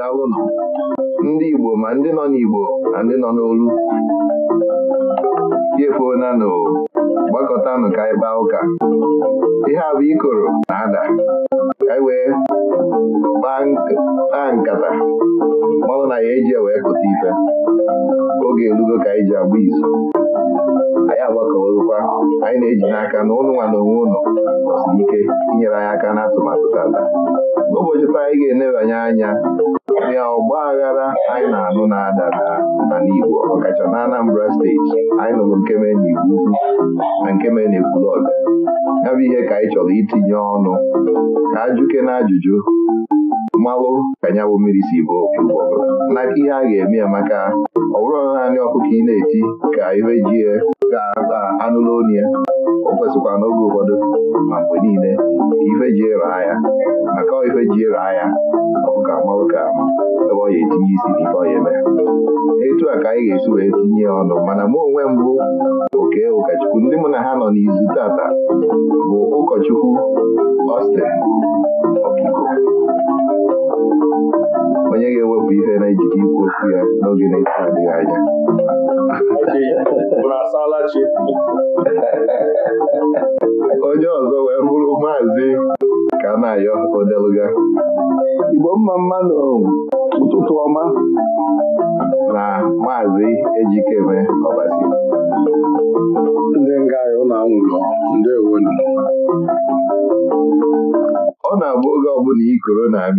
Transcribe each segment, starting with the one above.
nọ. ndị Igbo ma ndị nọ n'Igbo na ndị nọ n'olu e na gbakọtanụ ka anyị kpaa ụka ihe a bụ ikoro na-ada ka anyị wee kpaa nkata mmanwụ na ya eji wee kụta ife oge elugo ka anyị ji agba izu anyị agbakọrụkwa anyị na-eji n'aka na ụnụ nwa na onwe ụlọ nọsiri ike inyere anyị aka n'atụmatụ tata n'ụbọchị taa anyị ga-enebanye anya karịa ọgba aghara anyị na-anụ na adara na Igbo ọkacha na Anambra steeti anyị nụrụ nkeme n'Igbo na nkeme na-ekwulọg ya bụ ihe ka anyị chọrọ itinye ọnụ ka ajụke na ajụjụ mmalụ ka nyabụ mmiri si bụ na ihe a ga-eme ya maka ọ bụrụ naanị ọkụkọ ị na-eti ka ihe ji ga-anụla onye. o kwesịkwa n'oge ụfọdụ ma mgbe niile ife ji raa ya maka ife ji raa ya ọụka marụ ka ebe ọ ga etinye isi n'ife ọ ya etu a ka anyị ga-esi wee tinye ọnụ mana mụ onwe mbụ oke ụkọchukwu ndị mụ na ha nọ n'izu tata bụ ụkọchukwu Austin Okiko onye ga-ewepụ ihe na-ejide ikwu okwu ya n'oge na-eto adịghị anya onye ọzọ wee bụrụ maazị ka na-ayọ odeluga Igbo mma mma n'ụtụtụ ọma na maazị Ejikeme Ọbasi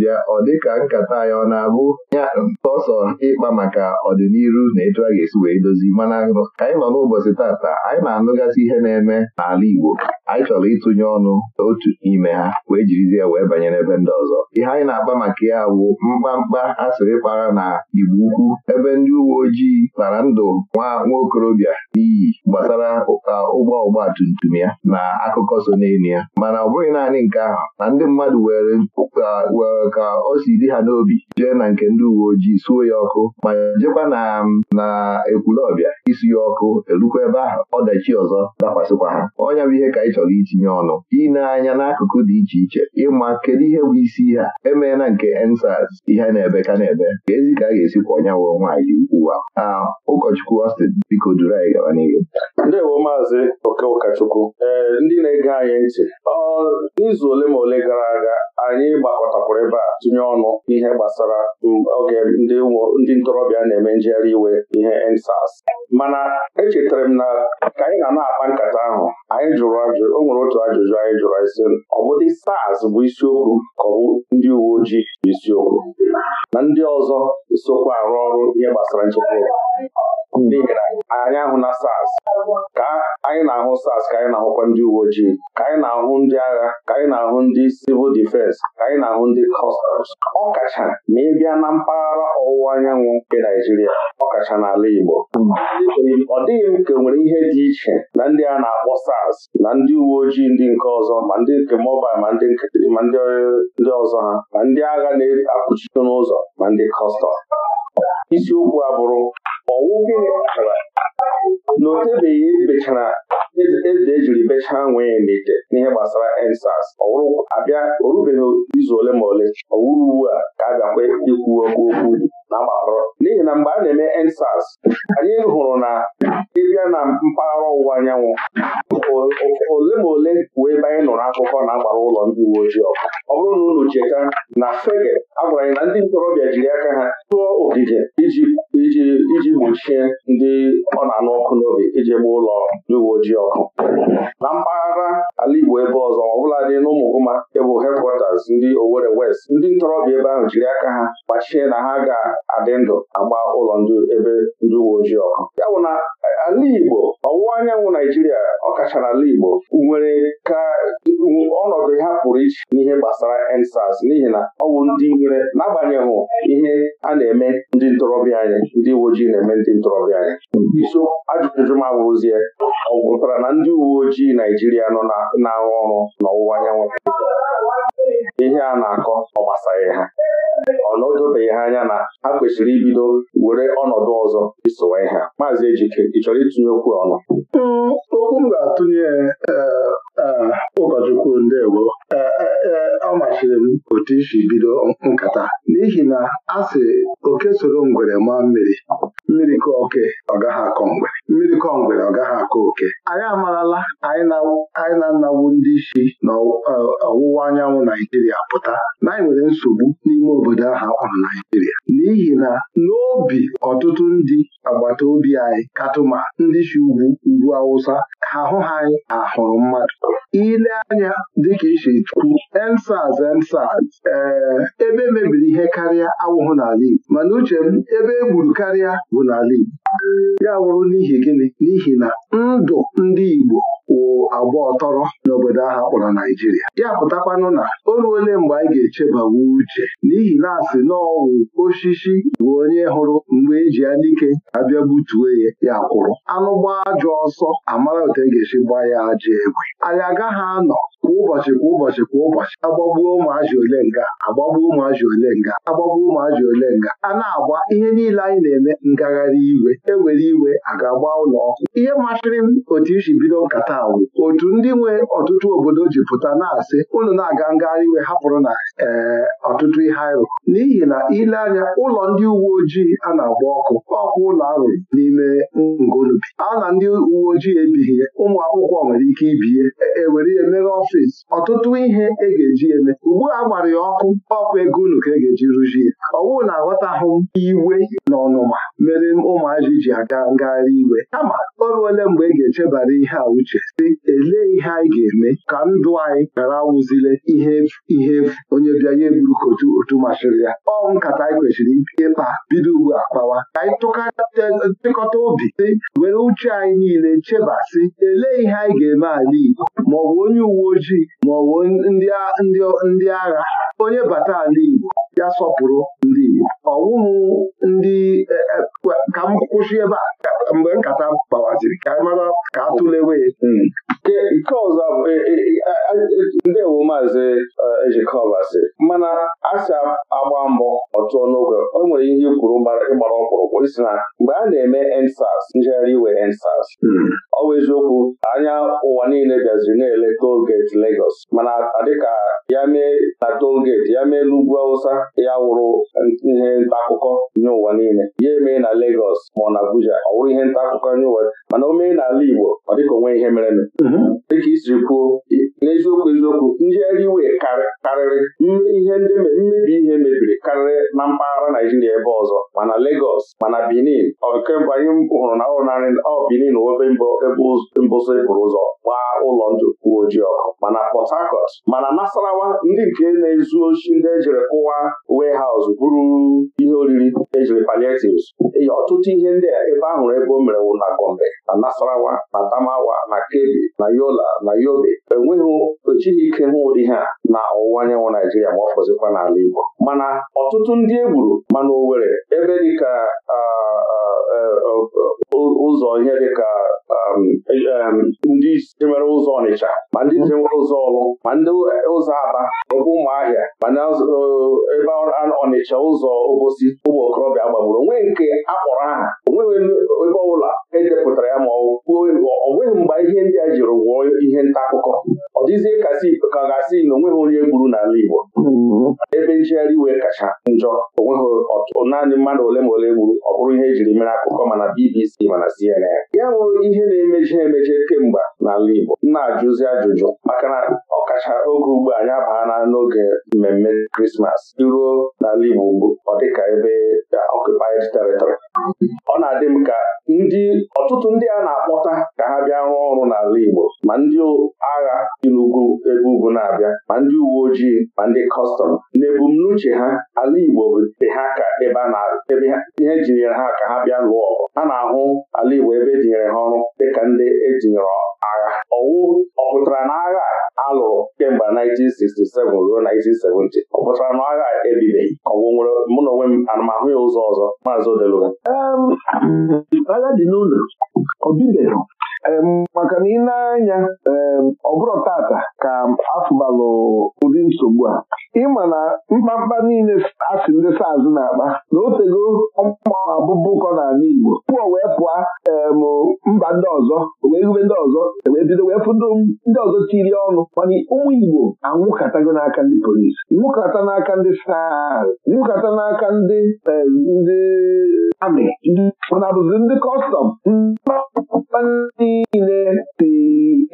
na-abịa ọ ka nkata ya ọ na-abụ ya sọsọ ịkpa maka ọdịnihu na etu a ga-esi wee dozi mana ka anyị nọ n'ụbọchị tata anyị na-anụgasị ihe na-eme n'ala Igbo anyị chọrọ ịtụnye ọnụ otu n'ime ha wee jirizie ya wee banye n'ebe ndị ọzọ ihe anyị na-akpa maka ya bụ mkpamkpa asịrị kpara na Igbo ukwu ebe ndị uwe ojii kpara ndụ nwa nwaokorobịa n'iyi gbasara ụgbọ ọgba tum tum ya na akụkọ so n'elu ya mana ọ bụghị naanị nke ahụ na ndị mmadụ were ka o si dị ha n'obi jee na nke ndị uwe ojii suo ya ọkụ ma jekwa na na ekwulọbịa isi ya ọkụ erukwa ebe ahụ ọdachi ọzọ dakwasịkwa ha ọnya bụ ihe ka ị chọrọ itinye ọnụ ineanya anya n'akụkụ dị iche iche ịma kedu ihe bụ isi ha emeela nke ensas ihe na-ebe ka na-ebe ka ezi ka a ga-esi kwa ọnya wụọ nwaanyị uwe a ụkọchukwu Austin biko duru anyị gaba n'ihu maazị ụkọchukwu ee ndị na-ege anyị ntị n'izu ole ma ole gara aga anyị gbakọtakwara ebe a tụnye ọnụ ihe gbasara um, oge ndị ntorobịa na-eme njegharị iwe ihe EndSARS mana echetara m na ka anyị na na-akpa nkata ahụ anyị jụrụ ajụjụ o nwere otu ajụjụ anyị jụrụ isi ọ SARS bụ isiokwu ka ọ ndị uwe ojii bụ isiokwu na ndị ọzọ sokwa arụ ọrụ ihe gbasara nchekwa n'ihi na anyị ahụ na SARS ka anyị na-ahụ SARS ka anyị na-ahụkwa ndị uwe ojii ka anyị na-ahụ ndị agha ka anyị na-ahụ ndị sivil difensi ka anyị na-ahụ ndị customs ọ kacha ma ị bịa na mpaghara ọwụwa anyanwụ nke Naijiria ọ kacha n'ala Igbo ọ dịghị m ka nwere ihe dị iche na ndị a na-akpọ SARS na ndị uwe ojii ndị nke ọzọ ma ndị nke mobal ma ndị nkịtịrị ma ndị ọzọ ha ma ndị agha na-akpụchite n'ụzọ ma ndị kọstọm isiokwu a bụrụ ọwụ gịnị kpatara na otebeghị ebechara eze ejiri bechaa nwee n'ite n'ihe gbasara ensas ọwụrụ abịa orubeghị izu ole ma ole ọwụrụ uwe a ka a ga bịakwa ikwu okwu okwu na mgbarụ n'ihi na mgbe a na-eme ensas anyị hụrụ na ịbịa na mpaghara ọwụwa anyanwụ ole ma ole bụ ebe anyị nụrụ akụkọ na agbara ụlọ ndị uwe ojii ọkụ ọ bụrụ na unu cheta na fege agwara anyị na ndị ntorobịa jiri aka ha tụọ ogige iji gbochie ndị ọ na-anụ ọkụ n'obi iji gbaa ụlọ ndị uwe ojii ọkụ na mpaghara ala Igbo ebe ọzọ ọ bụla dị n'ụmụgụma bụ hedkwatas ndị Owerri West ndị ntorobịa ebe ahụ jiri aka ha gbachie na ha ga adị ndụ agba ụlọ ndị ebe ndị uwe ojii ọkụ ya bụ na ala Igbo ọwụwa anyanwụ Naijiria ọ kachara ala Igbo nwere ka ọnọdụ ha pụrụ iche n'ihe gbasara EndSARS n'ihi na ọ bụ ndị nwere n'agbanyeghị ihe a na-eme ndị ntorobịa anyị ndị uwe ojii na-eme ndị ntorobịa anyị iso ajụjụ m abụrụzie ọ gwụtara na ndị uwe ojii Naijiria nọ na-arụ ọrụ n'ọwụwa anyanwụ ihe a na-akọ ọ gbasaghị ha ọ na ha anya na ha kwesịrị ibido were ọnọdụ ọzọ isowa ihe maazị Ejike ị chọrọ itinye okwu ọnụ mm, okwu m ga-atụnye eh, eh, ụkọchukwu ndewo eh, ọ machiri m otu isi bido nkata n'ihi na a sị oke soro ngwere maa mmiri mmiri kọ oke ọ gaghị akọ mgbere. mmiri kọ ngwere ọ gaghị akọ oke anyị amarala anyị na anawu ndị isi na e, ọwụwa anyanwụ Naijiria pụta na anyị nwere nsogbu n'ime obodo ahụ akpọrọ Naijiria n'ihi na n'obi ọtụtụ ndị agbata obi anyị katụma ndị si ugwu ugwu Awụsa ha hụ ha anyị ahụrụ mmadụ ile anya dịka isi tukwu ensaz ensaz ee ebe e mebiri ihe karịa awụhụ n'ala Igbo mana uche m ebe e gburu karịa bụ n'ala Igbo ya wụrụ n'ihi gịnị n'ihi na ndụ ndị Igbo wụ agba ọtọrọ n'obodo ahụ akpọrọ Naijiria ya pụtakwanụ na o ruole mgbe anyị ga-echebawa uche n'ihi na asị n'ọwụ osisi bụ onye hụrụ mgbe eji ya n'ike abịa gbutuo ya ya kwụrụ anụ gbaa ajọ ọsọ amara otu e ga-esi gbaa ya ajọ egwe anyị agaghị anọ kwa ụbọchị kwa ụbọchị kwa ụbọchị agbagbuo ụmụazị ole nga agbagbuo ụmụazị ole nga agbagbuo ụmụazị ole nga a na-agba ihe niile anyị na-eme ngagharị iwe ewere iwe aga ga-agba ụlọ ọkụ ihe masịrị m otu isi bido nkata wụ otu ndị nwe ọtụtụ obodo ji pụta na-asị ụlọ na-aga ngagharị iwe hapụrụ na ee eh, ọtụtụ ihe arụ n'ihi na ile anya ụlọ ndị uwe ojii a na-agba ọkụ ọkụ ụlọ arụrụ n'ime ngolubi a na ndị uwe ojii ebighị ụmụ akwụkwọ nwere ike ibie ewere ya mere ọfịs ọtụtụ ihe e ga-eji eme ugbu a gbara ya ọkụ ọkụ ego unu ka e ga-eji rụzie ọwụ na-aghọtahụ iwe na ọnụma mere ụmụazị ji aga ngagharị iwe kama o ole mgbe e ga-echebara ihe a uche elee ihe anyị ga-eme ka ndụ anyị ghara awụzile ihe ihe onye bịa ya eburu ka otu masịrị ya ọ nkata anyị kwesịrị ịkpa bido ugbu a kpawa ka anyị tụkọta obi si were uche anyị niile chebasị elee ihe anyị ga-eme ala Igbo maọbụ onye uwe ojii maọbụ ndị agha onye bata ala Igbo ya sọpụrụ ndị Igbo ọwụhụ ndị e, e, ka m kwụsị ebe a mgbe nkata gbawaziri ka mara ka tụlewe hmm. nke ọzọ e, ndewo maazị ejikọbasị mana asị, agba mbọ ọtụọ n'oge o nwere ihe kwuru ịgbara mkpụrụkwụ isi na mgbe a na-eme ensas njegharị iwe ensas hmm. ọ eziokwu anya ụwa niile bịaziri na-ele tolgeti Legos. mana dịka ya mee na tolgeti ya mee n'ugwu Awụsa ya wụrụ ihe nta akụkọ nye ụwa niile ya emee na Legọs ma ọ na Abuja ọ wụrụ ihe nta akụkọ nye ụwa mana o mee n'ala Igbo ọ dịka onwe ihe mere mhm. dịka isiri kwuo n'eziokwu eziokwu ndị eriwe karịrị ihe ndị mmebi ihe mebiri karịrị na mpaghara Naijiria ebe ọzọ mana Legọs mana Benin ọkemgbe anyị hụrụ na ọrụ narị ọ Benin ebe mbụsị pụrụ ụzọ gbaa ụlọ ndụ uwe ojii ọkụ mana Port Harcourt mana Nasarawa ndị nke na-ezu ochi ndị ejere kụwa warehouse buru. ihe oriri ejiri paliatives ọtụtụ ihe ndị a ebe ahụrụ ebe o mere na Gombe na Nasarawa na damawa na Kebbi na Yola na Yobe enweghị ejighị ike hụ ụdị ha na ọwụwa anyanwụ Naijiria ma ọ fọzikwa n'ala Igbo mana ọtụtụ ndị e gburu mana owere ebe dịka ah, ah, Eh, eh, ụzọ ihe dịka um, um, ndị isi nwere ụzọ Ọnịcha ma ndị isi nwere ụzọ Ọlụ ma ndị ụzọ Aba ebe ụmụahịa ma eh, ebe Ọnịcha ụzọ Obosi ụmụ okorobịa gbagburu onwe nke akpọrọ aha onweghị ebe ọbụla edepụtara ya ma ọ bụghị mgbe ihe ndị a jiri wụọ ihe nta akụkọ ọ dịzie ka ga-asị na onweghị onye gburu n'ala Igbo mm-hmm. ebe njegharị iwe kacha njọ onweghị naanị mmadụ ole ma ole gburu bụrụ ihe ejiri mere akụkọ mana BBC mana CNN ya bụ ihe na-emechi emeche kemgbe n'ala Igbo na-ajụzi ajụjụ maka na ọkacha oge ugbu anyị abaana n'oge mmemme Krismas iruo n'ala Igbo ugbu ọ dịka ebe ọkụpaid uh, territory ọ na-adị m ka ndị ọtụtụ ndị a na-akpọta ka ha bịa rụọ ọrụ n'ala Igbo ma ndị agha n'ugwu ebe ugwu na-abịa ma ndị uwe ojii ma ndị kọstọm n'ebumnuche ha ala Igbo bụ ha ka ebe a na-ebe ihe jinyere ha ka ha bịa lụọ ọgụ Ha na-ahụ ala Igbo ebe ejinyere ha ọrụ dịka ndị etinyere agha ọwụ ọ pụtara na agha Alụrụ kemgbe 1967 ruo 1970 ọ pụtara na agha ebibeghị ọgwụ nwere mụ na onwe m anamahụ ya ụzọ ọzọ maazị Odeluga dị maka na ị na-anya ọ bụrụ tata ka afụbalụ ụdị nsogbu a ịma na mkpamkpa niile asị ndị saz na-akpa na o tego ọmabụbụkọ n'ala Igbo pụọ wee pụọ mba ndị ọzọ wee gube ndị ọzọ e wee bido wee fụdo ndị ọzọ tiri ọnụ mana ụmụ Igbo anwụkatago n'aka ndị polisi nwụkata n'aka ndị saz nwụkata n'aka ndị ndị amị mana bụzi ndị kọstọm niile si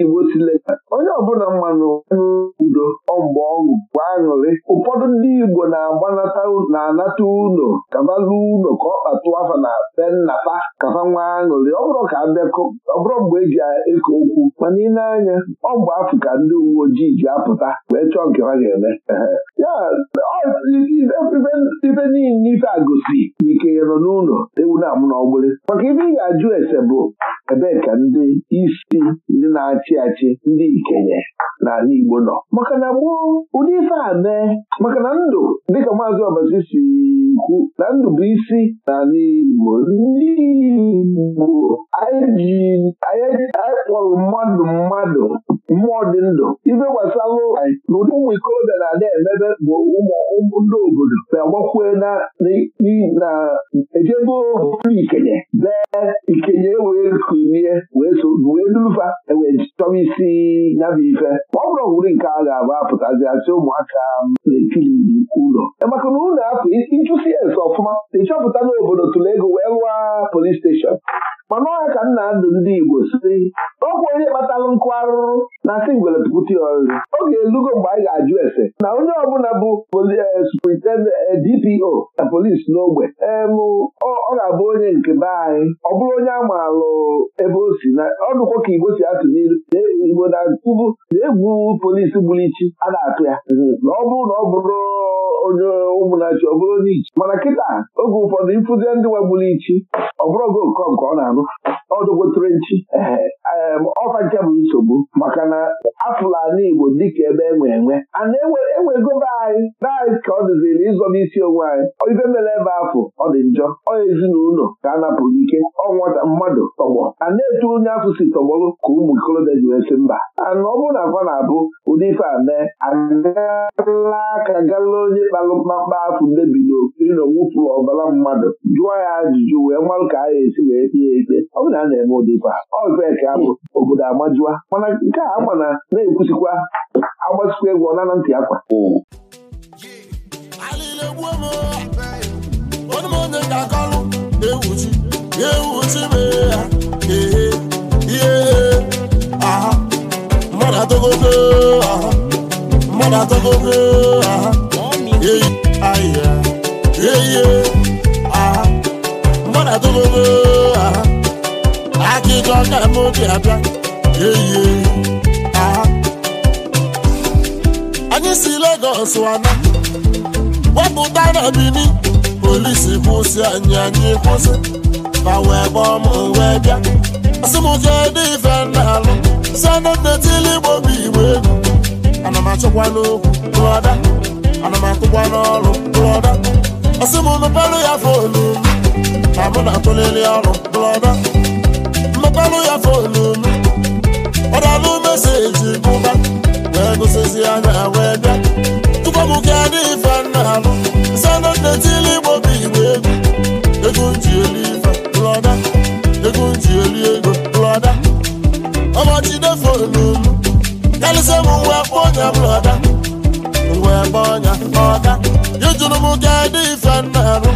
Igbo si leta onye ọbụla mmanụ mgbe ọṅụ bụ aṅụrị ụfọdụ ndị Igbo na-agbanata na-anata unu kabalu unu ka ọ kpatụ afa na be nnata, kafa nwa aṅụrị ọ bụrụ ka abịakọ ọ bụrụ mgbe eji eke okwu mana ị anya ọ bụ afọ ka ndị uwe ojii ji apụta wee chọọ nke ha ga-eme ife niile ife agosi na ike nọ n'ụlọ ewu na-amụ n'ọgbụrị maka ife ị ga-ajụ ese bụ ebee ka ndị isi ndị na-achị achị ndị ikenye n'ala Igbo nọ maka na gboo ụdị ife a mee maka na ndụ dịka maazị Ọbasi si kwu na ndụ bụ isi n'ala Igbo ndị Igbo anyị kpọrọ mmadụ mmadụ mmụọ dị ndụ ife anyị na ụdị ụmụ ikorobịa na-ada emebe bụ ụmụ ndị obodo na-agbakwe na ejebe ikenye dee ikenye ewere ku ilie wee durufa ewee chọwa isi nyabụ ife ọ bụrụ owuri nke a ga-abụ apụtazi asị ụmụaka na-ekiri ụlọ e maka na ụlọ apụ ịchụsi ya ese ọfụma ịchọpụta n'obodo tụrụ wee rụọ polis steshọn mana ọha ka nna ndụ ndị Igbo site ọkwụ onye kpatalụ nkụ arụrụ na asị ngwere pụta ọ ga-elugo mgbe anyị ga-ajụ ese na onye ọbụla bụ DPO eh, eh, na polis n'ogbe ọ ga-abụ onye nke be anyị ọ bụrụ onye a maalụ ebe o si na ọdụkwo ka Igbo si atụ n'iru na Igbo na tubu na-egwu polis gburu ichi a na-atụ ya mhm. na ọ bụrụ na ọ bụrụ onye ụmụnachi ọ bụrụ onye ichi mana kịta oge ụfọdụ ịfụzie ndị nwa gburu ichi ọ bụrụ oge ọ nke ọ na-anụ ọdụgotere nchi um, ọfa nke bụ nsogbu maka na afụlani Igbo dịka ebe e enwe enwe a na anyị be ka ọ dịziri ịzọba isi onwe anyị ibe mere ebe afọ ọ dị njọ ọ ezinụlọ ka a napụrụ ike ọ nwata mmadụ tọgbọ a na-etu onye afọ si tọgbọrụ ka ụmụ ikolobịa ji wee sị mba ana ọ bụrụ na afọ na-abụ ụdị ife a mee agala aka gala onye kpalụ mkpakpa afọ na n'owufụrụ ọbara mmadụ jụọ ya ajụjụ wee marụ ka a ga-esi wee tie ikpe ọ na a na-eme ụdị ife a ọbeka bụ obodo amajụa mana nke a ama na na-ekwusikwa agbasikwa egwu ọnana ntị akwa mmadụ atọgogo aha akịka ọka m obi abịa eyi anyị si Lagos wana wepụta na Bini polisi kwụsị anyị anyị kwụsị ma wee gbaa m wee bịa asị m kedu ife na-alụ si anọdetili igbo bụ igbo egwu ana m achọkwa n'okwu brọda ana m akụkwa n'ọrụ brọda asị m nụpelụ ya fonu ma mụ na-atụlili ọrụ brọda ọrụ ya fonu m ọdalụ meseji bụba wee gụsịzi anya wee bịa tupu ka dị ife nna alụ sanọ netili igbo bụ igbo egwu ego nji elu ife brọda ego nji elu ego brọda ọmachide fọlụ m karịsịa m nwa kpọnya brọda mgbe kpọnya ọda ejuru m ka dị ife nna alụ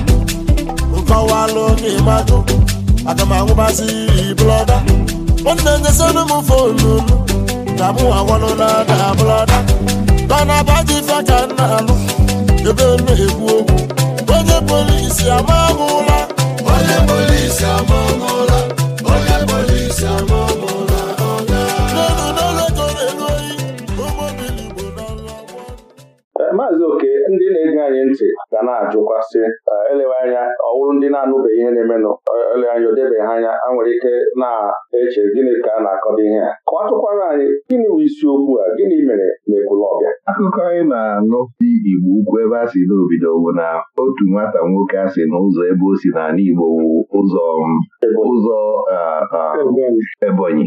nkọwalụ n'ịmadụ aga m anwụbazi iyi blọda nwanne nyezinu m fonu m na mụ agwalụla na blọda bana baji ife ka m na-alụ ebe m na-ekwu okwu onye polisi amamụla onye polisi amamụla onye polisi amamụla eh, maazị oke ndị na-ege anyị ntị ga na-ajụkwasị elewe anya ọ wụrụ ndị na anụbe ihe na-emenụ ele anya o debeghị anya a nwere ike na-eche gịnị ka a na-akọdo ihe a kọwatụkwara anyị gịnị bụ isiokwu a gịnị mere ọbịa? akụkọ anyị na-anụ dị Igbo ukwu ebe a si n'obido bụ na otu nwata nwoke a sị na ebe o si n'ala Igbo bụ ụzọ ụzọ Ebonyi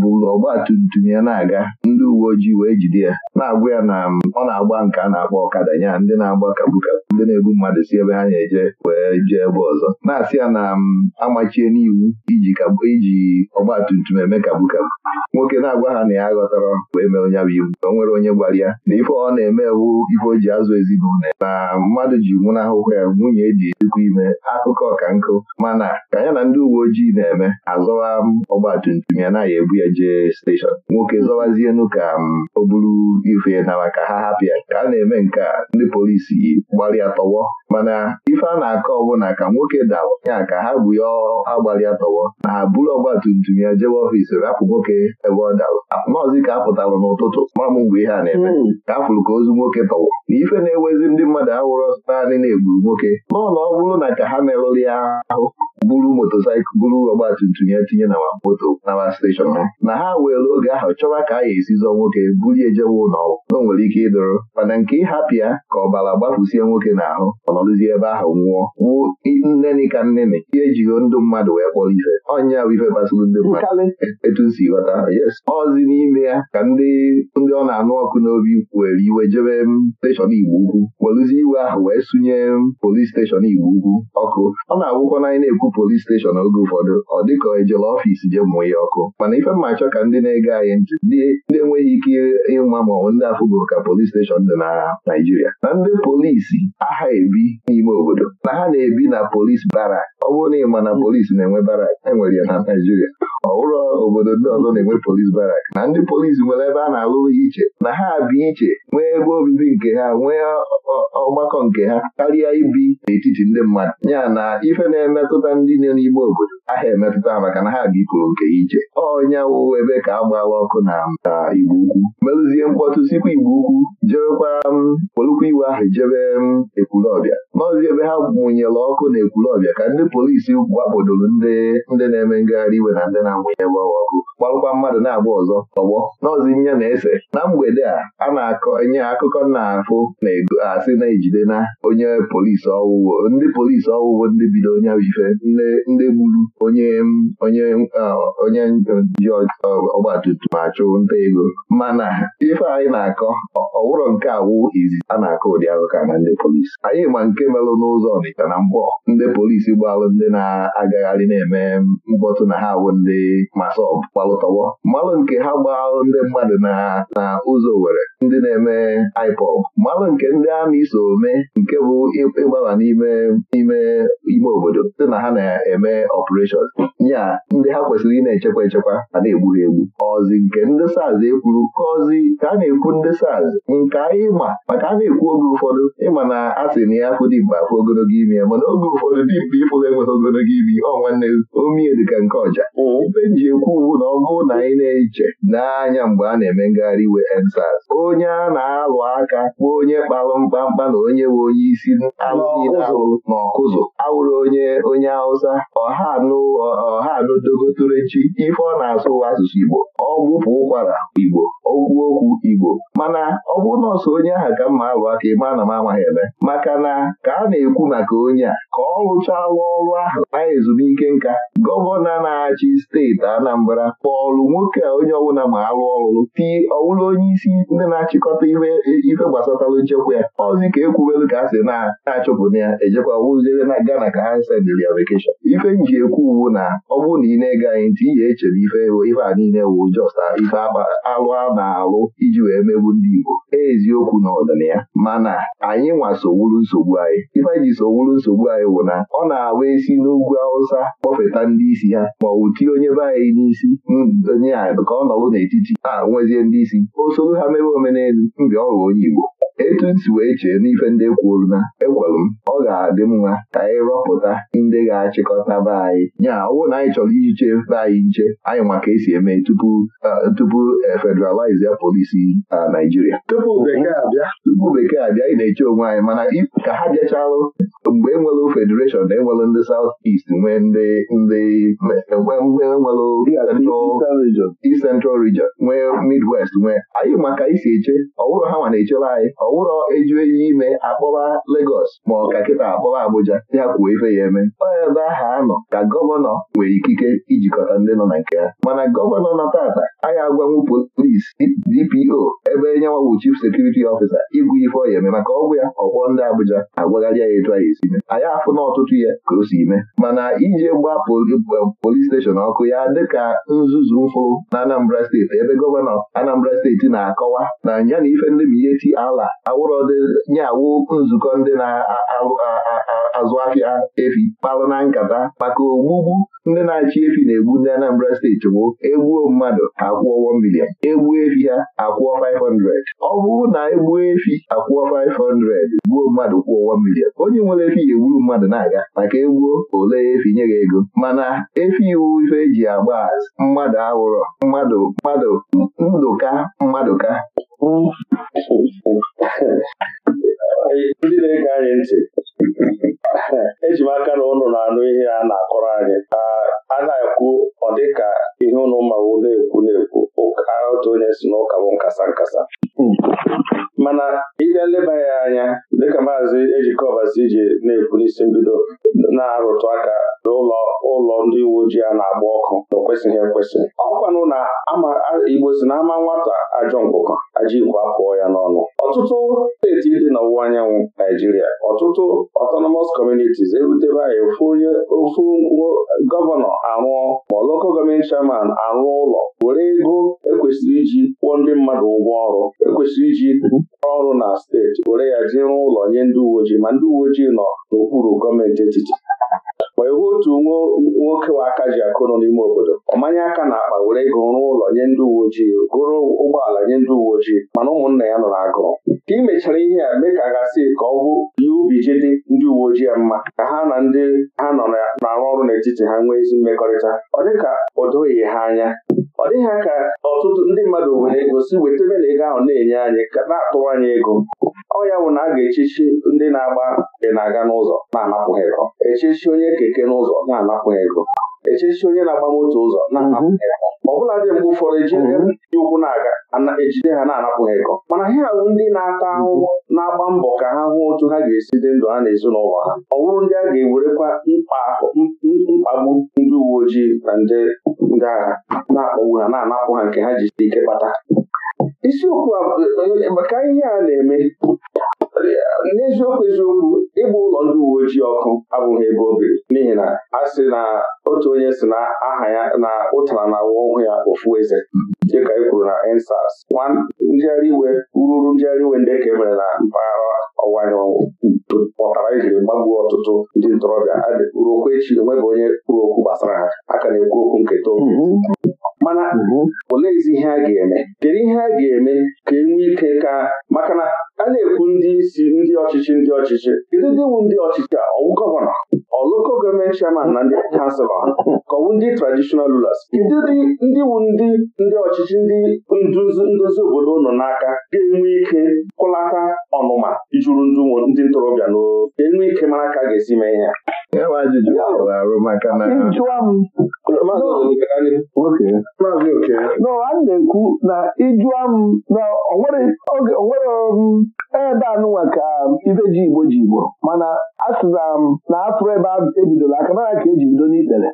bụ ọgba tumtum ya na-aga ndị uwe ojii wee jide ya na-agwa ya na ọ na-agba nke a na-akpọ ọkada ya ndị na-agba kabukabu ndị na-ebu mmadụ si ebe ha na eje wee jee ebe ọzọ na-asị ya na mm, amachie n'iwu iji iji ọgbatumtum eme kagbu kagbu nwoke na-agwa ha na ya ghọtara wee mee onye bụ iwu o nwere onye gwara ya na ife ọ na-eme wu ife o ji azụ ezinụlọ na mmadụ ji nwụnahụhụ ya nwunye eji ezikwa ime akụkọ ọka nkụ mana ka ya na ndị uwe ojii na-eme azọwa mm, ọgbatumtum ya na ya ebu ya jee steshọn nwoke zọwazienu ka mm, o buru ife na maka ha hapụ ya ka a na-eme nke a ndị polisi gbalịa tọwọ mana ife a na-akọ ọbụna ka nwoke dawa ya ka ha bụ ya agbalị tọwọ na ha buru ọgba tum tum ya jebe ọfiisi rapụ nwoke ebe ọ dara nọọzi ka apụtara n'ụtụtụ ma m mgbe ihe a na-eme hmm. ka afụrụ ka ozu nwoke tọwọ na ife na-ewezi ndị mmadụ awụrọ naanị na-egburu nwoke nọọ na ọ bụrụ na ka ha merụrụ ya ahụ buru motosaịkụl buru ọgbatumtum ya tinye na moto nawa steshọn ha na ha weere oge ahụ chọwa ka a ya esi zọọ nwoke bulie ejewe ụlọ na nwere ike ịdụrụ mana nke ịhapụ ya ka ọbara gbafusie nwoke n'ahụ ọnọdụzie ebe ahụ nwụọ wuo nneni ka nneni ihe ejighị ndụ mmadụ wee kpọrọ ife ọnya bụ ife gbasara ndị mmadụ etu si ghọta ọzi n'ime ya ka ndị ndị ọ na-anụ ọkụ n'obi were iwe jebe steshọn igbo ukwu werụzie iwe ahụ wee sụnye polis steshọn igbo ugwu ọkụ ọ na-agwụkwana anyị na-ekwu polis steshọn oge ụfọdụ ọ dịka ejela ọfiisi jee mụọ ya ọkụ mana ife mma achọ ka ndị na-ege anyị ntị ndị enweghị ike ịma maọbụ ndị afụgo ka polis steshọn dị na Naijiria. na ndị polisi aha ebi n'ime obodo na ha na-ebi na polis barak ọ bụrụ na ịma na polisi na-enwe barak enwere ya na Naijiria. ọ bụrụ obodo ndị ọzọ na-enwe polis barak na ndị polisi nwere ebe a na-alụ iche na ha bi iche nwee ebe obibi nke ha nwee ọgbakọ nke ha karịa ibi n'etiti ndị mmadụ ya na ife na-emetụta ndị nọ n'ime obodo ahịa emetụta maka na ha bipụrụ nke ije ọnya wụwo ebe ka agbawa ọkụ na igbo ukwu merụzie mkpọtụ sikwa igbo ukwu jebekwa m polukwa iwe ahụ jebe m ekwulọbịa maọzi ebe ha mụnyere ọkụ na ekwulọbịa ka ndị polisi gwakpodoro ndị na-eme ngagharị iwe na ndị na-amụnye gbawa ọkụ gbarụkwa mmadụ na-agba ọzọ ọgbọ n'ọzi nye na-ese na mgbede a a na-akọ enye akụkọ na-afụ na-ego asị na-ejide na onye polisi ọwụwo ndị polisi ọwụwo ndị bido onye ife ndị gburu onye onye onye ji ọgbatumtum achụ nta ego mana ife anyị na-akọ ọwụrọ nke awụ izizi a na-akọ ụdị akụkọ na ndị polisi anyị ma nke nke melụ n'ụzọ Ọnịcha na mgbọ ndị polisi gbalụ ndị na-agagharị na-eme mkpọtụ na ha bụ ndị masọb gbalụtọgbọ mmalụ nke ha gbalụ ndị mmadụ na na ụzọ were ndị na-eme ipob mmalụ nke ndị amị so ome nke bụ ịgbaba n'ime ime ime obodo dị na ha na-eme ọpụreshọn ya ndị ha kwesịrị ị na-echekwa echekwa a na-egburu egbu ọzi nke ndị saz ekwuru ka ọzi ka a na-ekwu ndị saz nke anyị ma maka a na-ekwu oge ụfọdụ ịma na a sị na ya ndị Igbo afọ ogologo ime ya mana oge ụfọdụ dị mkpa ịpụla enweta ogologo ime ọ nwanne omie dịka nke ọja mm. ibe ekwu na ọ bụrụ na anyị na-eche n'anya mgbe a na-eme ngagharị iwe EndSARS onye a na-alụ aka kpọọ onye kpalụ mkpamkpa na onye we onye isi alụghị alụ na ọkụzụ awụrụ onye onye Hausa ọha anụ ọha anụ ife ọ na-asụ asụsụ Igbo ọ gbụpụ ụkwara Igbo okwu okwu Igbo mana ọ bụrụ nọọsụ onye ahụ ka mma alụ aka ịma na m amaghị eme maka na ka a na-ekwu maka onye a ka ọ rụchala ọrụ ahụ na ezumike nka gọvanọ na-achị steeti Anambra kpọọlụ nwoke a onye ọbụla ma arụ ọrụ tii ọwụla onye isi ndị na-achịkọta ife gbasatalụ nchekwa ya ọzi ka ekwubelu ka a sị na-achụpụta ya ejekwa wụziere na Gana ka ha sendịrị ya vekeshọn ife nji ekwu uwu na ọ bụrụ na ị na-ege anyị ntị ihe echere ife ife a niile wụ jọst ife arụ a na-alụ iji wee megbu ndị Igbo e eziokwu na ya mana anyị nwasowuru nsogbu anyị anyị ife anyị ji nsogbu anyị wụ na ọ na-awa isi n'ugwu Awụsa kpọfeta ndị isi ha ma ọ bụ onye be anyị n'isi mm, onye anyị ka ọ nọrụ n'etiti a nwezie ndị isi o soro ha mebe omenelu mgbe ọ onye Igbo etu m si wee chee n'ife ndị kwuru na ekwelu m ọ ga-adị mma ka anyị rọpụta ndị ga-achịkọta be anyị nya ọwụ na anyị chọrọ iji chee be anyị nche anyị maka esi eme tupu tupu e, federalize polisi na Naijiria tupu bekee abịa tupu bekee abịa anyị na-eche onwe anyị mana ka ha bịachalụ mgbe enwelụ federation na enwelụ ndị South East nwee ndị ndị mgbe enwelụ Central Region nwee Midwest nwee anyị maka isi eche ọ ha ma na-echere anyị ọwụrọ eju ime akpọba Legos ma ọ ka kịta akpọba Abuja ya kwuo ife ya eme onye ebe aha anọ ka gọvanọ nwere ikike ijikọta ndị nọ na nke ya. mana gọvanọ na tata anyị agwanwu polis DPO ebe nyenwawụ chief sekuriti ọfisa igwu ife ọ ya eme maka ọgwụ ya ọkwọ ndị Abuja agwagharị ya etu anyị esi mee anyị afụ na ọtụtụ ya ka o si ime mana ije gbaa polis eh, steshọn ọkụ ya dịka nzuzu mfụ na Anambra steeti ebe gọvanọ Anambra steeti na-akọwa na ya na ife ndị ma ihe ti ala awụrọdị nye awụ nzukọ ndị na-azụ afịa efi kpalụ na nkata maka ogbugbu ndị na-achị efi na-egbu ndị Anambra steeti bụ egbuo mmadụ akwụọ 1 million egbuo efi ha akwụọ 500 ọ bụrụ na egbuo efi akwụọ 500 gbuo mmadụ kwụọ 1 million onye nwere efi ya egburu mmadụ na-aga maka egbuo ole efi nye gị ego mana efi iwu ife eji agba mmadụ awụrọ mmadụ mmadụ ndụka mmadụ ka ndị na-ege anyị ntị eji m aka na ụnụ na-anụ ihe a na-akọrọ anyị a na-ekwu ọ dịka ihe ụnụ mmanwụ na-ekwu na-ekwu otu onye si n'ụka bụ nkasa nkasa mana ịbịa leba ya anya dịka maazị ejikọbasi ji na-ekwu n'isi mbido na-arụtụ aka n'ụlọ ụlọ ndị uwe ojii a na-agba ọkụ na o ekwesị ọkwanụ na Igbo si na ama nwata ajọ ngwụkọ ajikwa pụọ ya n'ọnụ ọtụtụ steeti dị n'ọwụwa anyanwụ Naijiria ọtụtụ autonomous communities erutebe anyị ofu onye ofu gọvanọ arụọ ma loko gọọmenti chairman arụọ ụlọ were ego ekwesịrị iji kwụọ ndị mmadụ ụgwọ ọrụ ekwesịrị iji ọrụ na steeti were ya jiri ụlọ nye ndị uwe ojii ma ndị uwe ojii nọ n'okpuru gọọmenti etiti wee wuo otu nwoke nwa aka ji akụrụ n'ime obodo ọmanye aka na akpa were ego rụọ ụlọ nye ndị uwe ojii gụrụ ụgbọala nye ndị uwe ojii mana ụmụnna ya nọ n'agụụ ka imechara ihe a mee ka gasị ka ọ bụ ihe ubi ji dị ndị uwe ojii ya mma ka ha na ndị ha nọ na-arụ ọrụ n'etiti ha nwee ezi mmekọrịta ọ dịka o doghị ha anya ọ dịghị ka ọtụtụ ndị mmadụ nwere ego si wetebe na ego ahụ na-enye anyị ka na-atụwa anyị ego ọ ya bụ na a ga-echichi ndị na-agba dị na-aga n'ụzọ na-anapụghị ego echichi onye keke n'ụzọ na-anapụghị ego echichi onye na-agba moto ụzọ na-anapụghị ego mhm. ọ bụla dị mgbe ụfọdụ ejide mhm. ndị ụkwụ na-aga ejide ha na-anapụghị ego mana ha bụ ndị na-ata mhm. ahụhụ na-agba mbọ ka ha hụ otu ha ga-esi dị ndụ ha na ezinụlọ ha ọ bụrụ ndị a ga-ewerekwa mkpagbu ndị uwe ojii na ndị agha na-akpagbu ha na-anapụ ha nke ha ji ike kpata isiokwu maka ihe a na-eme n'eziokwu eziokwu ịgba ụlọ ndị uwe ojii ọkụ abụghị ebe o n'ihi na a sị na otu onye si na aha ya na ụtara na awa ọhụụ ya ofu eze dịka e kwuru na ensas nwa njegharị iwe ruru njegharị iwe ndị ka e mere na mpaghara ọwụwa anyanwụ pụtara ijiri gbagbuo ọtụtụ ndị ntorobịa ruokwa echi enweghị onye kwuru okwu gbasara ha a ka na-ekwu okwu nketa mana olee ezi ihe a ga-eme kedu ihe a ga-eme ka e nwee ike ka maka na a na-ekwu ndị isi ndị ọchịchị ndị ọchịchị kedu ndị wu ndị ọchịchị a ọwụ gọvanọ ọlụko gọọmenti chairman na ndị kanselọ ka ọwụ ndị traditional rulers kedu ndị wu ndị ndị ọchịchị ndị nduzi obodo nọ n'aka ga-enwe ike kwụlata ọnụma ijuru ndụ ndị ntorobịa n'oo ka enwe ike mara ka a ga-esi mee ihe enwe na na-ekwu na ịjụa m na onwere ebe um, e anụnwa ka um, ibeji ji igbo ji igbo mana asị um, na na ebe ebe ebidoro aka nara ka eji bido n'ikpere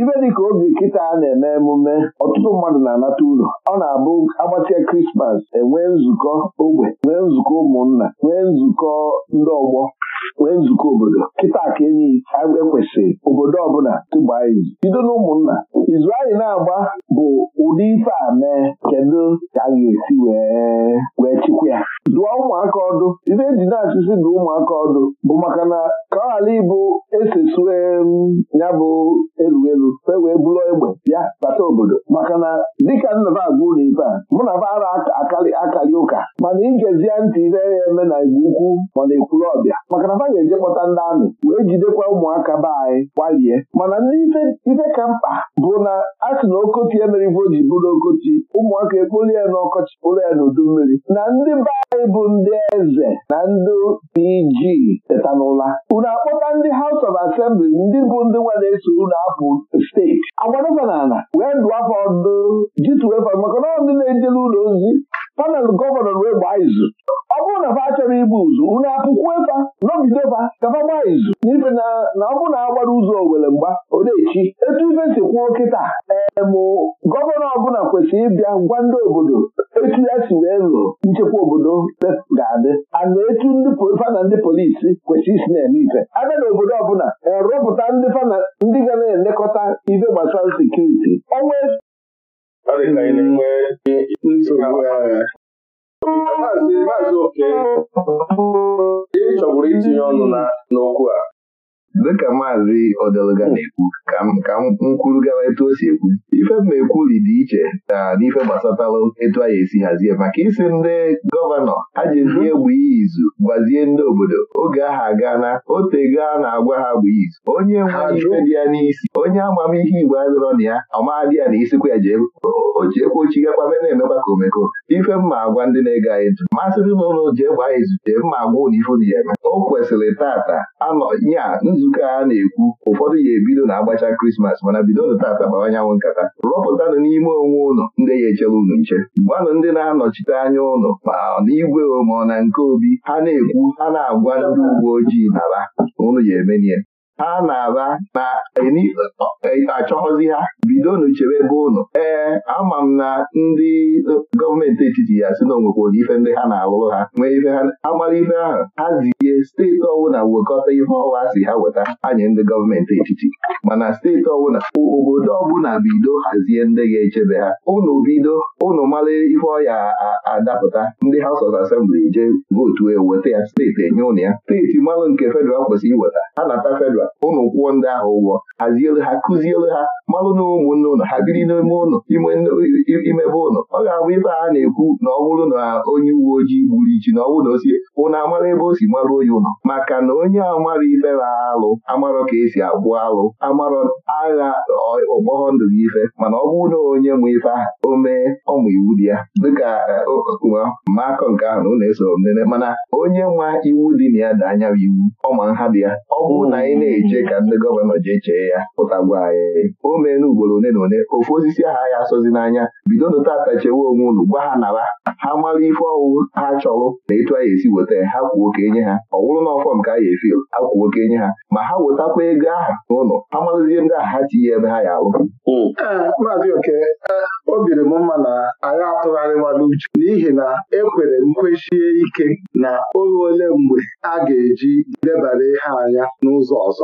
ibe dịka oge nkịta a na-eme emume ọtụtụ mmadụ na-anata ụlọ ọ na-abụ agbatịa krismas enwee nzukọ ogbe nwee nzukọ ụmụnna nwee nzukọ ndị ọgbọ wee nzukọ obodo kịta ka enyi ekwesịrị obodo ọbụla tụgbaa izu bido na izu anyị na-agba bụ ụdị ife a mee kedu ka a ga-esi wee chịkwa ya dụọ ụmụaka ọdụ ibe eji na-achụsi dụ ụmụaka ọdụ bụ maka na ka ọ ghara ịbụ esesue ya bụ elu elu fe wee bụrụ egbe bịa bata obodo maka na dịka nna m agwa ụlọ ibe a mụ na bara akarị ụka mana igezie ntị ihe ya eme na igbo ukwu ma na ekwuru ọbịa maka na ga-eje kpọta ndị amị wee jidekwa ụmụaka be anyị gbalie mana ndị ife ka mkpa bụ na a sị na okoti emeribo ji bụrụ okoti ụmụaka ekpolu ya n'ọkọchị kpolu ya n'udu mmiri na ndị mba anyị ndị eze na ndị PG tetanụla unu akpọta ndị House of Assembly ndị bụ ndị nwa na-eso unu apụ steeti agwadofa wee ndụ afọ ndụ jituwefa maka na ndị na-ejele ụlọ ozi panel gọvanọ wee gbaa izu ọ bụrụ na fa achọrọ igbu ụzụ unu apụkwu efa nọgidefa kafa gbaa izu n'ife na ọ bụrụ na agbara ụzọ owere mgba odechi etu ife si kwuo kịta ee gọvanọ ọbụla kwesịrị ịbịa gwa ndị obodo etu ya si wee lụọ nchekwa obodo ga-adị ana etu ndị fana ndị polisi kwesịrị isi na-eme ife abịa e na obodo ọbụla rụpụta ndị fana ndị ga na-elekọta ife gbasara sekuriti onwe maazị oke ị chọburu itinye ọnụ n'okwu a dịka maazị Odeluga oh. na-ekwu ka m kwuru gawa etu o si ekwu ife m na-ekwuli dị iche na n'ife gbasatalụ etu a anyị esi hazie maka isi ndị gọvanọ aji ndị mhm. egbu izu gbazie ndị obodo oge ahụ aga na otego na-agwa ha bụ izu onye nwere ife dị ya n'isi onye amamihe igbo adịrọ na ya ọmadị ya na isikwa ya jee ojiekwa ochigakwa be na-emekwa ka omeko ife mma agwa ndị na-ege anyị ntụ masịrị m ụlọ jee gbaa izute mma agwa ụdị ife dị eme o kwesịrị tata anọ ya nzu Nke a na-ekwu ụfọdụ ya ebido na agbacha krismas mana bidonụ tata gbawa anyanwụ nkata rọpụtanụ n'ime onwe ụlọ ndị ya echere unu nche gbanụ ndị na-anọchite anya ụlọ ma ọ n'igwe ma ọ na nke obi ha na-ekwu ha na-agwa ndị uwe ojii nara ụnụ ga ha na-ala na eh, achọghọzi ha bidonu chebe ebe ụnụ ee eh, ama m na ndị eh, gọọmenti etiti ya si na onwekworo ife ndị ha na-alụrụ ha nwee ife ha amara ife ahụ ha ziye steeti ọbụla wekọta ihe ọwa si ha weta anya ndị gọọmenti etiti mana steeti ọbụla obodo ọbụla bido hazie ndị ga-echebe ha ụnụ bido ụnụ mara ife ọya adapụta ndị House of Assembly je vootu eweta ya steeti enye ụnụ ya steeti mmanụ nke fedral kwesịrị iweta ha nata fedral chọrọ ụnụ kwụọ ndị ahụ ụgwọ hazielu ha kụzielu ha malụ na ụmụnne ụnụ ha biri n'ime ụnụ imebe ụnụ ọ ga-abụ ife a na-ekwu na ọ bụrụ na onye uwe ojii gburu ichi na ọ bụrụ na o sie ụnụ amara ebe o si marụ onye ụnụ maka na onye amara ife na alụ amarọ ka esi agwụ alụ amarọ agha ọgbọghọ ndụ gị ife mana ọ bụrụ na onye mụ ife aha o mee ọmụ iwu dị ya dịka e, mmakọ nke ahụ na ụlọ eso nene mana onye nwa iwu dị na ya dị anya iwu ọma nha dị ya ọ bụrụ na anyị na eche ka ndị gọvanọ ji chee ya pụta gwa anyị o na ugboro one na one ofu osisi aha ya asọzi n'anya bido nụta atachewe onwe ụlọ, gwa ha nara ha mara ife ọwụwụ ha chọrọ na etu anyị esi weta ha kwuo ka enye ha ọ na ọfọ ka anyị efil ha kwuo ka enye ha ma ha wetakwa ego ahụ n'ụlọ ha marụzie ndị ahụ ha tinye ebe ha ya alụ Maazị e, m mma na anyị atụgharịwala uche n'ihi na ekwere nkwesie ike na oge ole mgbe a ga-eji debara ihe anya n'ụzọ ọzọ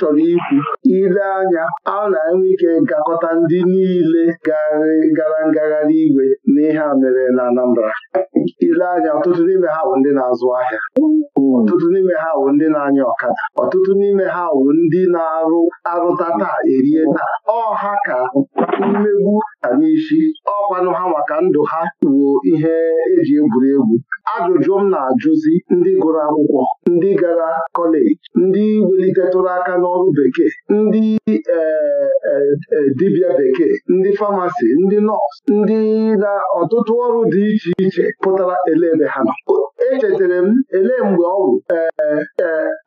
chọrọ ikwu ile anya a na-enwe ike gakọta ndị niile gara ngagharị iwe na ihe a mere na Anambra ile anya ọtụtụ n'ime ha bụ ndị na-azụ ahịa ọtụtụ n'ime ha bụ ndị na-anya ọkada ọtụtụ n'ime ha bụ ndị na-arụ arụta taa erie taa ọha ka mmegbu ka n'isi ọkwanụ ha maka ndụ ha wuo ihe eji egwuri egwu ajụjụ m na-ajụzi ndị gụrụ akwụkwọ ndị gara kọleji ndị welitetụrụ aka n'ọrụ bekee ndị e, e, e, dibịa bekee ndị famasi ndị nọọsụ ndị na ọtụtụ ọrụ dị iche iche pụtara elebe ha nọ echetara m ele mgbe ọ bụ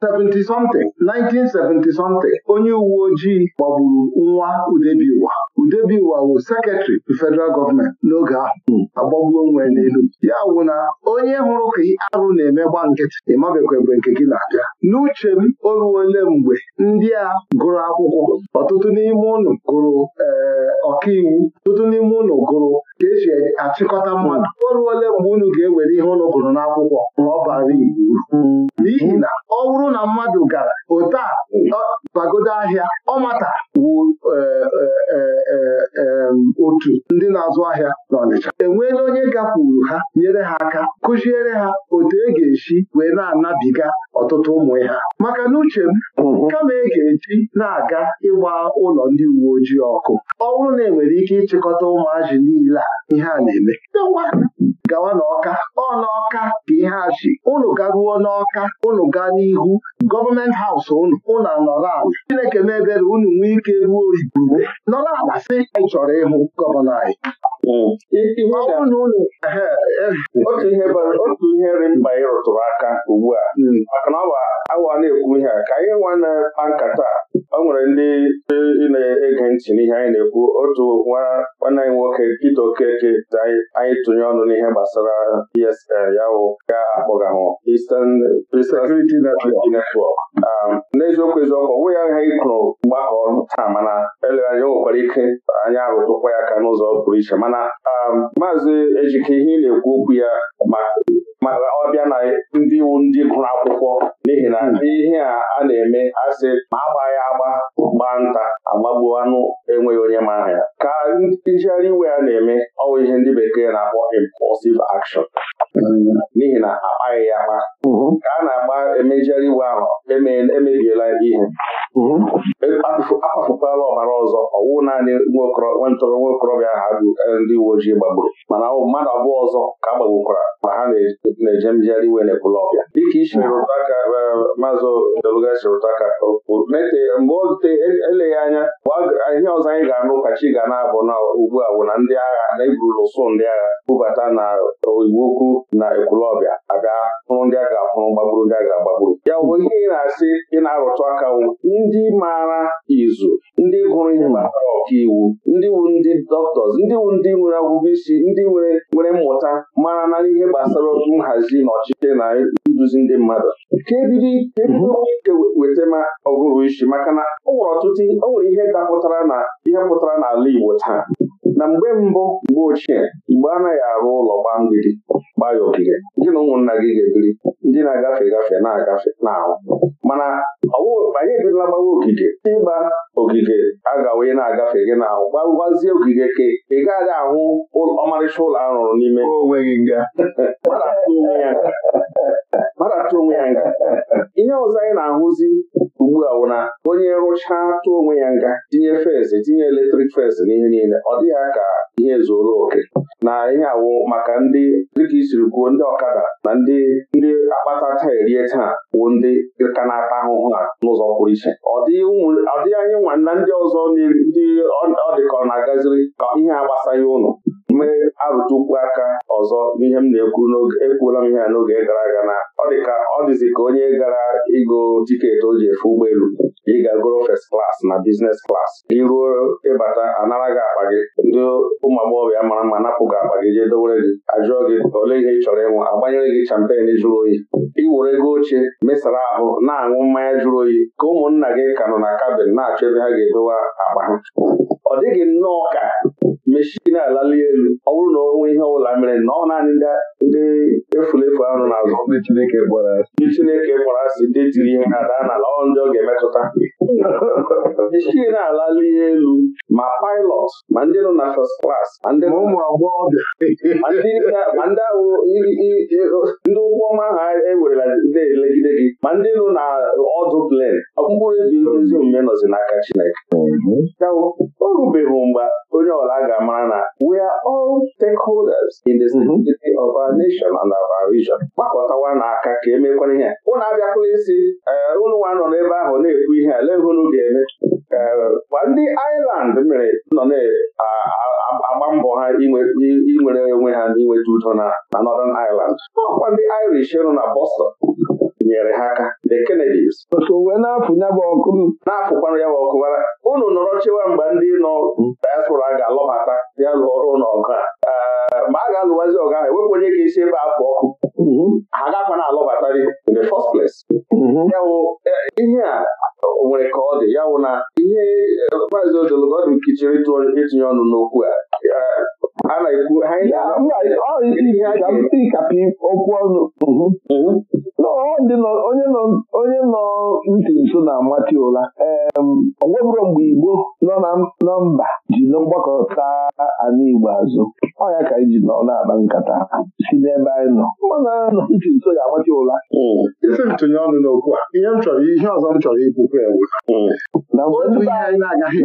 70 something 1970 something onye uwe ojii gbagburu nwa udebiwa udebiwa bụ sekretrị federal gọọmenti n'oge ahụ agbagbuo onwe n'elu ya wụ na onye hụrụ ka arụ na-eme gba nkịtị ịmabekwa ebe nke gị na-abịa n'uche m o ole mgbe ndị a gụrụ akwụkwọ ọtụtụ n'ime ụlọ gụrụ eh, ọkaiwu ọtụtụ n'ime ụlọ gụrụ ka esi achịkọta mmadụ o ole mgbe unu ga-ewere ihe ụlọ gụrụ n'akwụkwọ ma ọ bara igbo uru n'ihi na ọ bụrụ na mmadụ gara otu bagodo ahịa ọmata wụ e, e, e, otu ndị na-azụ ahịa n'Ọnịcha enweela onye gakwuru ha nyere ha aka kụziere ha otu e ga-esi wee na-anabiga ọtụtụ ụmụ ya maka na uche m mm-hmm. kama e ga-eji na-aga ịgba ụlọ ndị uwe ojii ọkụ ọ bụrụ na enwere ike ịchịkọta ụmụazị niile a ihe a na-eme gawa n'ọka ọ n'ọka ka ihe a ji unu garuo n'ọka unu gaa n'ihu gọọmenti haus unu unu nọrọ ala Chineke mebere ebere unu nwee ike ruo igurube nọrọ ala si anyị chọrọ ịhụ gọvanọ anyị hmm. e, otu ihe otu dị mkpa ị rụtụrụ aka ugbu a hmm. maka na ọ bụ awa na-ekwu ihe a ka anyị nwa na-akpa nkata ọ nwere ndị e, na-ege ntị n'ihe anyị na-ekwu otu nwa nwanne anyị nwoke Peter Okeke anyị tụnye ọnụ n'ihe gbasara gbasara ESL ya wụ ga-akpọgahụ Eastern Security Network um, n'eziokwu eziokwu ọ ya aha ịkụrụ mgbakọ taa mana eleghị anya o nwekwara ike anya arụtụkwa ya aka n'ụzọ pụrụ iche mana um, maazị Ejike ihe ị na-ekwu okwu ya maka ọ bịa na ndị iwu ndị gụrụ akwụkwọ n'ihi na hmm. ihe a na-eme asị ma ya agba gbaa nta agbagbuo anụ enweghị onye ma ya ka njegharị iwe ya na-eme ọ bụ ihe ndị bekee na-akpọ impulsive action n'ihi na akpaghị ya akpa Mhm. ka a na-agba emejere iwe ahụ emebiela ihe mhm. e, akpafukwala ọbara ọzọ ọwụ naanị nwentorọ nwa okorobịa ahụ e, ndị uwe ojii gbagburu mana ọ mmadụ abụọ ọzọ ka a gbagbukwara ma ha na-eje mjegharị iwe na ọbịa. dịka isi mhm. rụta e, maazị Deluga si rụta mgbe ote eleghị anya ihe ọzọ anyị ga-anụ kachi ga na-abụ na ugbu a bụ na ndị agha na-eburula ụsụ ndị agha bubata na iwu okwu na ekwulọbịa abịa hụrụ ndị agha ga-afụrụ gbagburu ndị a ga-agbagburu ya bụ ihe ị na-asị ị na-arụtụ aka nwụ ndị maara izu ndị gụrụ ihe ọka ọkaiwu ndị wu ndị dọktọs ndị wu ndị nwere ọgụgụ isi ndị nwere nwere mmụta mara na ihe gbasara nhazi na ọchịchị na nduzi ndị mmadụ nke bido ike e weta ma ọgụrụ isi maka na o nwere ọtụtụ o nwere ihe dapụtara na ihe pụtara n'ala Igbo taa na mgbe mbụ mgbe ochie mgbe anaghị arụ ụlọ gbaa mgbidi gbaa ya ogige ndị na ụmụnna gị ga-ebiri ndị na-agafe gafe na-agafe na-ahụ mana anyị ebirila gbawa ogige ịgba ogige agawa ị na-agafe gị na-ahụ gbagbazie ogige ka ị gaghị ahụ ọmarịcha ụlọ arụrụ n'ime mara atụ onwe ya nga ihe ọzọ anyị na-ahụzi ugbu a wụ onye rụcha atụ onwe ya nga tinye fezị tinye eletrik fezị n'ihe niile ọ dịghị ka ihe zuru oke na ihe awụ maka ndị dịka isiri kwuo ndị ọkada na ndị ndị akpata taa erie taa bụ ndị ka na-ata ahụhụ a n'ụzọ pụrụ iche ọ dịghị anyị nwa na ndị ọzọ ndị ọ dịka ọ na-agaziri ka ihe agbasaghị ụnụ mee arụtukwu aka ọzọ n'ihe m na-ekwu ekwuola m ihe a n'oge gara aga na ọ dị ka ọ dịzi ka onye gara ịgo tiketi o ji efe ụgbọelu ịga goro fes klas na biznes klas iruo ịbata anara gị akpa gị ndị ụmụ agbọghọbịa mara mma napụ gị akpa gị jee dowere gị ajụọ gị ole ihe ị chọrọ ịnwụ agbanyere gị champen jụrụ oyi iwere ego ochie mesara ahụ na-aṅụ mmanya jụrụ oyi ka ụmụnna gị ka nọ na kabin na-achọ ebe ha ga-edowe akpa ha ọ dịghị nnọọ ka na-alali elu ọ bụrụ na onwe ihe ọbụla mere na ọ naanị ndị efulefu ahụ na-azụ ndị Chineke kpọrọ asị ndị tiri ihe ha daa n'ala ọ ndị ọ ga-emetụta Ichie na-alala ihe elu ma pilot ma ndị nọ na first class ma ndị ụmụ agbọghọbịa ma ndị ahụ ndị ụgwọ ọnwa ahụ ewerela na-elegide gị ma ndị nọ na ọdụ plen mkpụrụ ebi ezi omume nọzi n'aka Chineke mhm. o rubeghị mgbe onye ọla ga-amara na we are all stakeholders in the mhm. stability of our nation and our region gbakọtawa n'aka ka emekwana ihe Ụlọ abịakwala isi ee eh, ụnụ nwa nọ n'ebe ahụ na-ekwu ihe a egwu ga-eme ma ndị iland mere nọ na-agba mbọ ha inwere onwe ha n'inweta udo na Northern Ireland ọkwa ndị Irish nọ na Boston nyere ha aka the Kennedys na ya ọkụ na-afụkwanụ ya bụ unu nọrọ chewa mgbe ndị nọ diaspora ga-alọbata ya lụọ ọrụ n'ọgụ a ma a ga-alụwazi ọgụ ahụ ewepụ onye ga-esi ebe afọ ọkụ ha agakwana alọbatari in the first place ihe a nwere ka ọ dị ya wụ na ihe maazị odologodị nkichiri itinye ọnụ n'okwu a a na-ekwu ihe a ga ọnụ. onye nọ ntị nso na-amati ụra ọ nwebụro mgbe Igbo nọ na mba ji mgbakọta anụ Igbo azụ ọ ya ka iji nọ na-akpa nkata si n'ebe anyị nọ mmanụ anya nọ ntị nso ga-amati ụra isi ntụnye ọnụ n'okwu a ihe m chọrọ ihe ọzọ m chọrọ ikwukwu ewu na mgbe anyị na-agaghị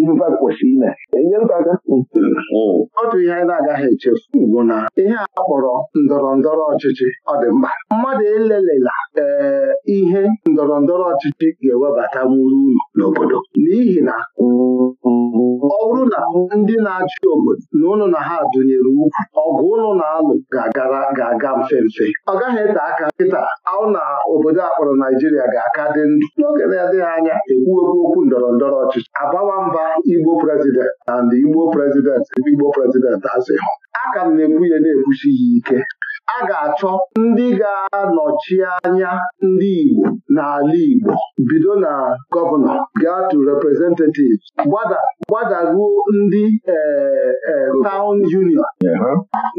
ifefe kwesịrị ime enyere aka hmm. Hmm. otu ihe anyị na-agaghị echefu bụ na ihe a kpọrọ ndọrọ ndọrọ ọchịchị ọ dị mkpa mmadụ ele Ee, eh, ihe ndọrọ ndọrọ ọchịchị ga-ewebatanwuru unu n'obodo n'ihi na ọ bụrụ na ndị na-achị obodo na ụnụ na ha dụnyere ukwu ọgụ ụnụ na-alụ ga ga-aga mfe mfe ọ gaghị ete aka nkịta ahụ na obodo akpọrọ Naijiria ga-aka dị ndụ n'oge na-adịghị anya ekwuekwu okwu ndọrọ ndọrọ ọchịchị abawa mba Igbo prezident na ndị Igbo prezident Igbo prezident asị A ka m na-ekwu ya na-ekwuchi ya ike a ga-achọ ndị ga-anọchi anya ndị Igbo n'ala Igbo bido na gọvanọ gaa to representatives gbadaruo ndị e, e, town union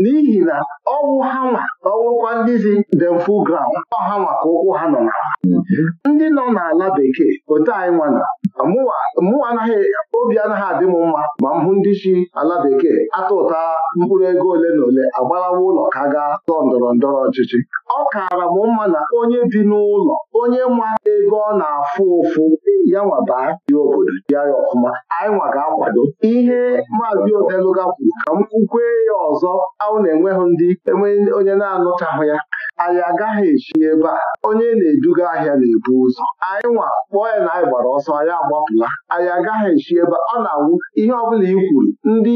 n'ihi na ọwụ hanwa ọwụkwa ndị zi dem full ground ka ụkwụ ha nọ na mhm. ndị nọ n'ala bekee otu anyị nwana mụnwa anaghị obi anaghị adị m mma ma m hụ ndị chi ala bekee atụ ụta mkpụrụ ego ole na ole agbalawa ụlọ ka gaa tọọ ndọrọ ndọrọ ọchịchị ọ kaara m mma na onye bi n'ụlọ onye ma ego ọ na-afụ ụfụ ya baa dị obodo bịa ya ọfụma anyị nwa ga-akwado ihe maazị odeluga kwuru ka m kwukwee ya ọzọ ahụ na-enweghị ndị enweghị onye na-anụchahụ ya anyị agaghị echi ebe a onye na-eduga ahịa na-ebu ụzọ anyị nwa kpọọ ya na anyị gbara ọsọ anyị agbapụla anyị agaghị echi ebe ọ na-awụ ihe ọbụla i kwuru ndị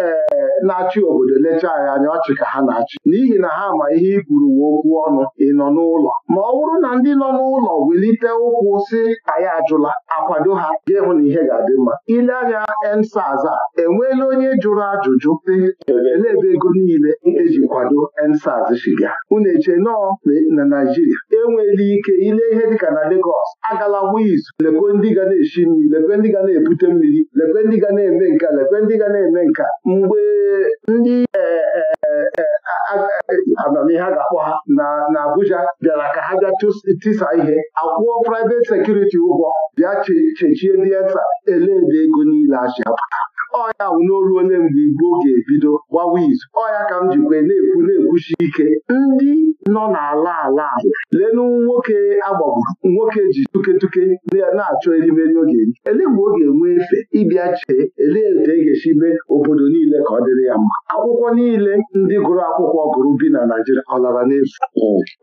ee na-achị obodo lechaa anyị anya ọchị ka ha na-achị n'ihi na ha ma ihe i kwuru wee okwu ọnụ ị nọ n'ụlọ ma ọ bụrụ na ndị nọ n'ụlọ welite ụkwụ si anyị ajụla akwado ha ga-ehụ na ihe ga-adị mma ile anya ensaz a enweela onye jụrụ ajụjụ dị ebe ego niile eji kwado ensaz shiga unu eche nọọ na Naijiria enweghị ike ile ihe dịka na Lagos agala wiz izu ndị ga na-eshi mmiri lekwe ndị ga na-ebute mmiri lekwe ndị ga na-eme nka lekwe ndị ga eme nka mgbe ndị e, e, e, amamihe a ga-akpọ ha na Abuja bịara ka ha bịa tisa ihe akwụọ private sekuriti ụgwọ bịa chechie ndị esa ele ebe ego niile achị apụta ọya n'oru ole mgbe igbo ga-ebido gbawa izu ọya ka m jikwe na-ekwu na-ekwuchi ike ndị nọ n'ala ala ala lenu nwoke agbagburu nwoke ji tuketuke na-achọ erimeri oge eri ele mgbe ọ ga-enwe efe ịbịa chee elee etu e ga-esi mee obodo niile ka ọ dịrị ya mma akwụkwọ niile ndị gụrụ akwụkwọ gụrụ bi na Naịjirịa ọ lara n'efu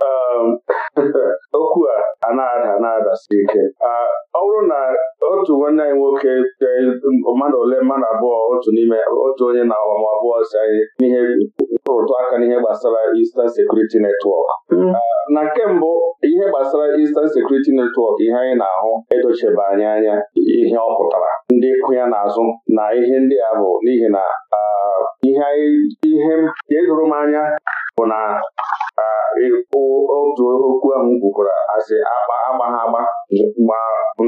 ehm, okwu a na-ada na ike ah, ọ bụrụ na otu nwanne anyị nwoke eh, mmadụ ole mmadụ abụọ otu n'ime otu onye na ọgbam abụọ si anyị n'ihe rụtụ aka n'ihe gbasara Eastern Security Network. Mm. Ah, na nke mbụ ihe gbasara Eastern Security Network ihe anyị na-ahụ edochebe anyị anya ihe ọ pụtara ndị kụ ya n'azụ na ihe ndị a bụ n'ihi na ah, ihe edoro m anya bụ na ah, otu okwu ahụ kwukwara asị agba agba agba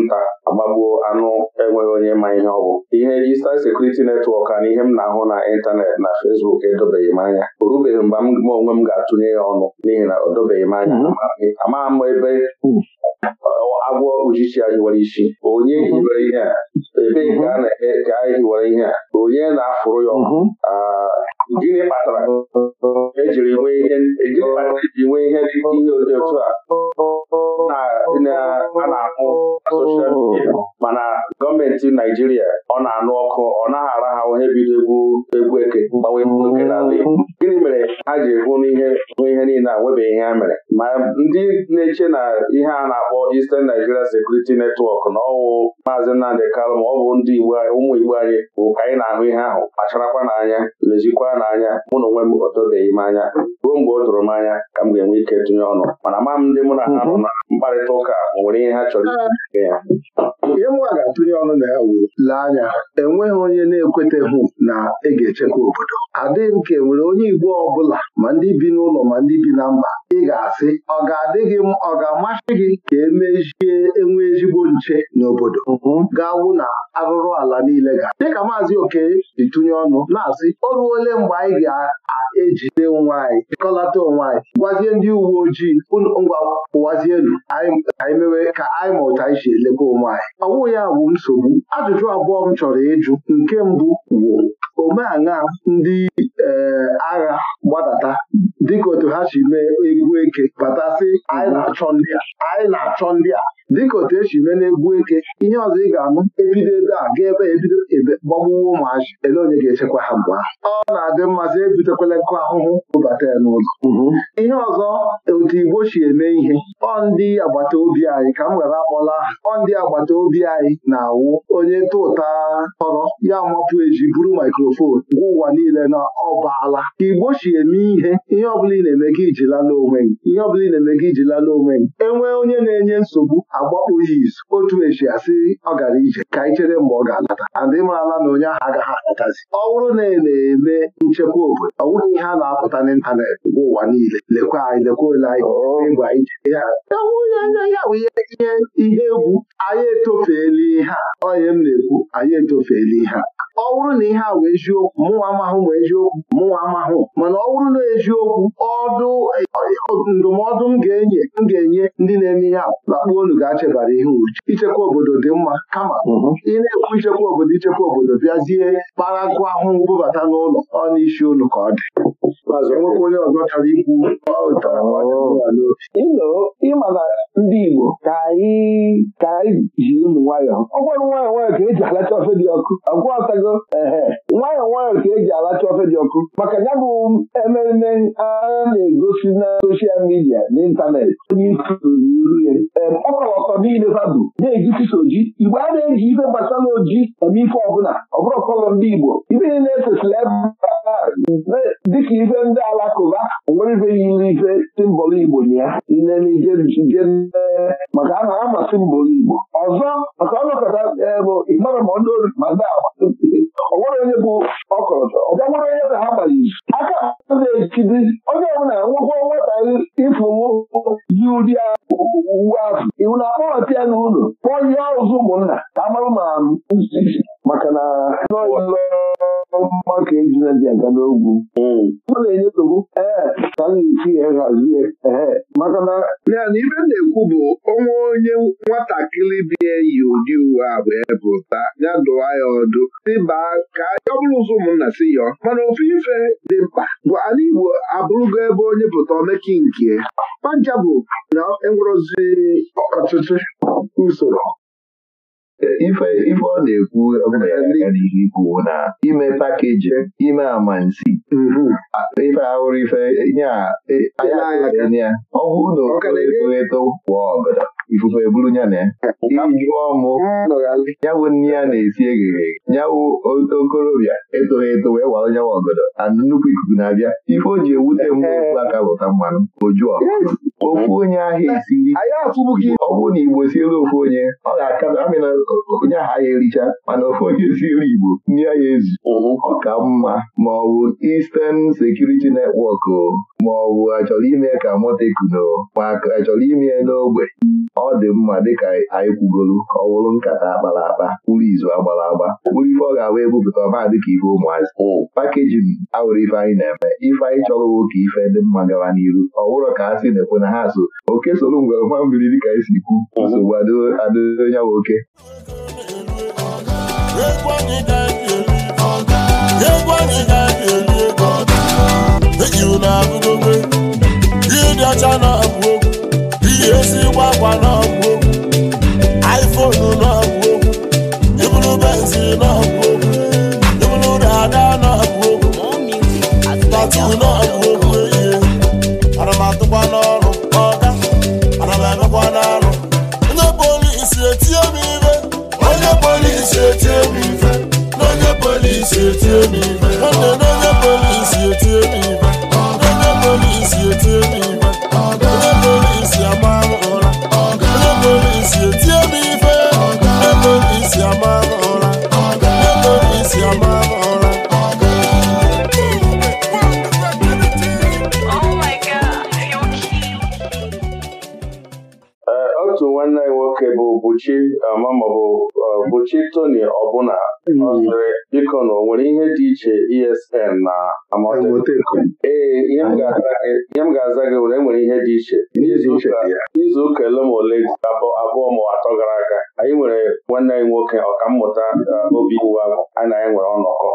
nta agbagbuo anụ enweghị onye ma ihe ọ bụ Eastern Security Network na ihe m na-ahụ na ịntanetị na Facebook edobeghị m anya o rubeghị mgbe onwe m ga-atụnye ya ọnụ n'ihi na o dobeghị m anya mhm. amaghị m ebe agwọ uchichi a hiwere isi onye mhm. hiwere ihe a ebee ka a na-eme ka a hiwere ihe a onye na-afụrụ ya ọkụ mhm. ah, gịnị kpatara ejiri nwee ihe dị ihe dị otu a a na-ahụ soshal midia mana gọọmenti Naijiria ọ na-anụ ọkụ ọ naghị arahahụ ihe bido egwu egwu eke mgbanwe oke n'ala Igbo gịnị mere ha ji hụ n'ihe ihe niile a nwebeghị ihe ha mere ma ndị na-eche na ihe a na-akpọ Eastern Nigeria Security Network na ọwụ maazị Nnamdị Kalụ ma ọ bụ ndị ụmụ Igbo anyị bụ ka anyị na-ahụ ihe ahụ kpacharakwa n'anya lezikwa n'anya mụ na onwe m o m anya ruo mgbe o tụrụ m anya ka m ga-enwe ike tinye ọnụ mana ama m ndị mụ na ha nọ na mkparịta ụka nwere ihe ha chọrọ ah. ya ihe nwa ga-atụnye ọnụ na ya wuru lee anya enweghị onye na-ekweteghị na ị ga-echekwa obodo adịghị m ka enwere onye Igbo ọbụla ma ndị bi n'ụlọ ma ndị bi na mba ị ga-asị ọ ga-adịghị m ọ ga-amasị gị ka emezie enwe ezigbo nche n'obodo mhm. ga-awụ na arụrụ ala niile ga dịka maazị oke ditụnye ọnụ na-asị o ruole mgbe anyị ga-ejide onwe anyị chịkọlata onwe anyị gwazie ndị uwe ojii ngwa pụwazie elu anyị mewe ka anyị ma anyị si elebe onwe anyị ọ ya bụ nsogbu ajụjụ abụọ m chọrọ ịjụ nke mbụ wụ omeaṅa ndị agha gbadata dịka otu ha si mee egwu eke batasị anyị na-achọ ndị a dịka otu esi mee n'egwu eke ihe ọzọ ị ga anụ ebido ebe a ga ebe ebido ebe gbagbuwa ụmụazị ele onye ga-echekwa ha mgbe ahụ ọ na-adị mmasị ebitekwala nkụ ahụhụ bụbata ya n'ụlọ mhm. ihe ọzọ otu Igbo si eme ihe ọ ndị agbata obi anyị ka m were akpọla aha ọ ndị agbata obi anyị na-awụ onye tụ ụta tọrọ ya mapụ eji buru maikrofon gwa ụwa niile na ọbaala Igbo si eme ihe ihe ọbụla ị na-eme gị iji lala onwe gị ihe ọbụla ị na-eme gị iji lala onwe gị enwee onye na-enye nsogbu agbapụ ya izu otu esi asị ọ gara ije ka anyị chere mgbe ọ ga-alata andị marala na onye ahụ agaghị alatazi ọ bụrụ na ị e na-eme nchekwa obodo ọ bụrụ ihe a na-apụta n'ịntanetị bụ ụwa niile lekwa anyị lekwa ole anyị ịgwa ije ya ya bụ ihe ihe egwu anyị etofeela ihe a onye m na-ekwu anyị etofeela ihe a ọ bụrụ na ihe a wee eziokwu mụnwa amahụ ma eziokwu mụnwa amahụ mana ọ bụrụ na eziokwu ọdụ ndụmọdụ m ga-enye m ga-enye ndị na-eme ihe a lakpuo unu chebara ihe uche ichekwa obodo dị mma kama mhm. ị na-ekwu ichekwa obodo ichekwa obodo bịazie kpara nkụ ahụ bubata n'ụlọ ọ n'isi ụlọ ka ọ dị enwekwa onye ọzọ chọrọ ikwu ịma na ndị Igbo ka anyị ji ụmụ nwayọọ ọ gwara nwayọọ nwayọọ ka eji alacha ofe dị ọkụ agwọtago ehe nwayọọ nwayọọ ka eji alacha ofe dị ọkụ maka ya bụ ememe a na-egosi na soshal midia n'ịntanetị onye iru ya niile fadu na-eji soji igbe a na-eji ife gbasara oji eme ife ọbụla ọ bụrụ ọkọlọ ndị Igbo ibe ife niile esesila dịka ife ndị alakụba nwere ife yiri ife simbọl Igbo ya ilenije maka a na-ama simbọl Igbo ọzọ maka ọnọkọta e, bụ ịmara ma ndị ori agba onwere onye bụ ọkọlọtọ ọbịa onye ka ha gbara izu aka na-ejide onye ọbụla nwekwa nwata ịfụnwụ ji ụdị agha uwe ahụ iwu na-akpọghọta ya n'ụlọ ụlọ kpọọ ihe ọzọ ụmụnna ka amarụ ma maka na maka ejina dị aga n'ogwu ọ na-enye nsogbu ee ka a na-esi hazie maka na na ibe na-ekwu bụ onwe onye nwatakịrị bi eyi ụdị uwe a bụ ya dụwa ya ọdụ baa ka ọ bụrụ ụzọ ụmụnna si yọọ mana ofu ife dị mkpa bụ ala Igbo abụrụgo ebe onye pụta omeki nke panja bụ na ozi ọtụtụ usoro ife ọ na-ekwu n'ihe ikwu na ime pakeji ime amansi mhm. ife ahụrụ ife e, ya ọhụụ na oeto kwa ọgọdọ ifufe eburu ya na ya jụọ mụ yawụ nne ya na-esi eghere yawụ okorobịa etoghị eto wee wara nyawa ọgọdọ na nnukwu ikuku na-abịa ife o ji ewute mgbe okwu aka bụta mmanụ o juọ ofu onye ahịa esiri anyị afụbụghị ọ bụrụ na Igbo siere ofu onye ọ ga-aka na amị onye ahịa ericha mana ofu onye siere Igbo nye ya ezu ọka mma ma ọ bụ Eastern Security Network ma ọ bụ achọrọ ime ka motekno ma achọrọ ime n'ogbe ọ dị mma dịka anyị kwugolu ka ọ bụrụ nkata akpara akpa kpụrụ izu agbara agba kpụrụ ife ọ ga-agba ebupụta ọba dịka ife ụmụazị oh. pakejin awụrụ ife anyị na-eme ife anyị chọrọ nwoke ife dị mma gawa n'iru ọ bụrụ ka a sị na-ekwe na ha so oke soro ngwere nwa mmiri dịka anyị e si kwu oh. nsogbu adịghị ya nwoke ihe dị ọcha na ji ezigbo akwa n'ọgwụ iphone n'ọgwụ okwu ibulu benzi n'ọgwụ okwu ibulu dada n'ọgwụ okwu tatu n'ọgwụ okwu ana m atụkwa n'ọrụ ọga ana m emekwa n'arụ onye polisi etie m ife onye polisi etie m ife onye polisi etie m ife gbochi um, mama bụ um, gbochi Tony ọbụna mm-hmm. biko na o nwere ihe dị iche ESN na ee ihe m ga-aza gị nwere enwere ihe dị iche n'izu ụka ole ma ole abụọ ma atọ gara aga anyị nwere nwanne anyị nwoke ọkammụta um, obi iwu anyị nwere ọnọkọ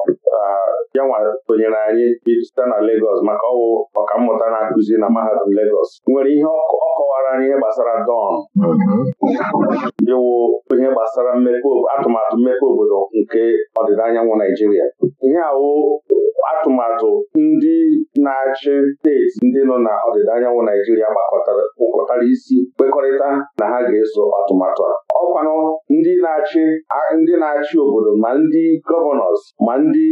ya nwa tonyere anyị site na legos maka ọwụ ọkammụta na-akụzi na mahadum legos nwere ihe ọkụ kọwara anyị ihe gbasara dọn mm-hmm. iwu ihe gbasara atụmatụ mmepe obodo nke ọdịda anyanwụ Naijiria ihe awụ atụmatụ ndị na-achị steeti ndị nọ na ọdịda anyanwụ Naijiria kpụkọtara isi kpekọrịta na ha ga-eso atụmatụ a ọkwanụ ndị na-achị ndị na-achị obodo ma ndị gọvanọs ma ndị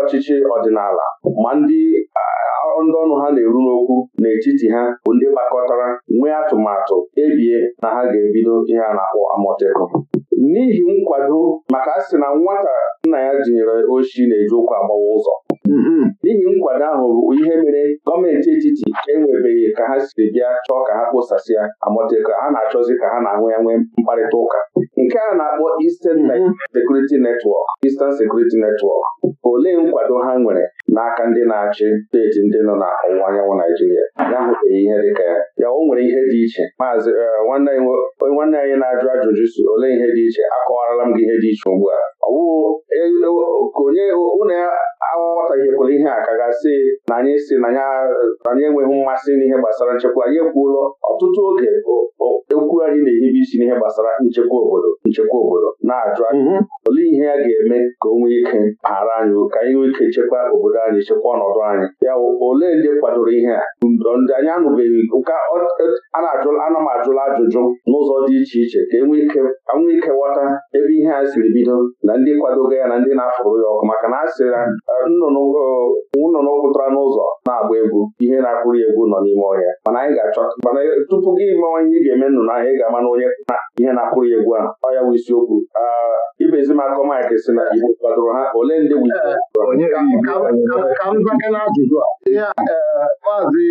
ọchịchị ọdịnala ma ndị ndị ọnụ ha na-eru n'okwu n'etiti ha bụ ndị gbakọtara nwee atụmatụ ebie na ha ga-ebido ihe a na-akpọ amọtekụ n'ihi nkwado maka asị na nwata nna ya jinyere oshi na-eji ụkwụ agbawa ụzọ mm-hmm. n'ihi nkwado ahụ bụ ihe mere gọọmenti etiti enwebeghị ka ha siri bịa chọọ ka ha kpụsasịa ya ka ha na-achọzi ka ha na-anwe ya nwee mkparịta ụka nke a na-akpọ Eastern mm-hmm. Security Network Eastern Security Network olee nkwado ha nwere n'aka ndị na-achị steeti ndị nọ na anyanwụ Naijiria ya hụbeghị ihe dịka ya ya o nwere ihe dị iche maazị eh, nwanne anyị na-ajụ ajụjụ si olee ihe dị iche akọwarala m gị ihe dị iche ugbu a ọwụka e, e, onye unu aghọtaghekwala ihe a ka gasị na anyị si na anyị enweghị mmasị n'ihe gbasara nchekwa anyị ekwuola ọtụtụ oge ekwu anyị na-ehibe isi n'ihe gbasara nchekwa obodo nchekwa obodo na-ajụ anyị mhm. olee ihe a ga-eme ka o nwee ike ghara anyị ka anyị nwee ike chekwa obodo anyị chekwa ọnọdụ anyị ya ole ndị kwadoro ihe a ndo ndị anyị anụbeghị e, ụka ana m ajụla ajụjụ n'ụzọ dị iche iche ka enwee ike ghọta ebe ihe a siri bido na ndị kwadogo ya na ndị na-afụrụ ya ọkụ maka na a sịrị eh, nnụnụ eh, pụtara n'ụzọ na-agba egwu ihe na-akpụrụ ya egwu nọ n'ime ọhịa mana anyị ga-achọ mana eh, tupu gị mawa ihe ị ga-eme nnụnụ ahụ ị ga-ama na onye na ihe na-akpụrụ ya egwu a ọ ya bụ isiokwu ah, ibezi m akọ Mike si na igbo kwadoro ha ole ndị ka m zaa n'ajụjụ a ihe maazị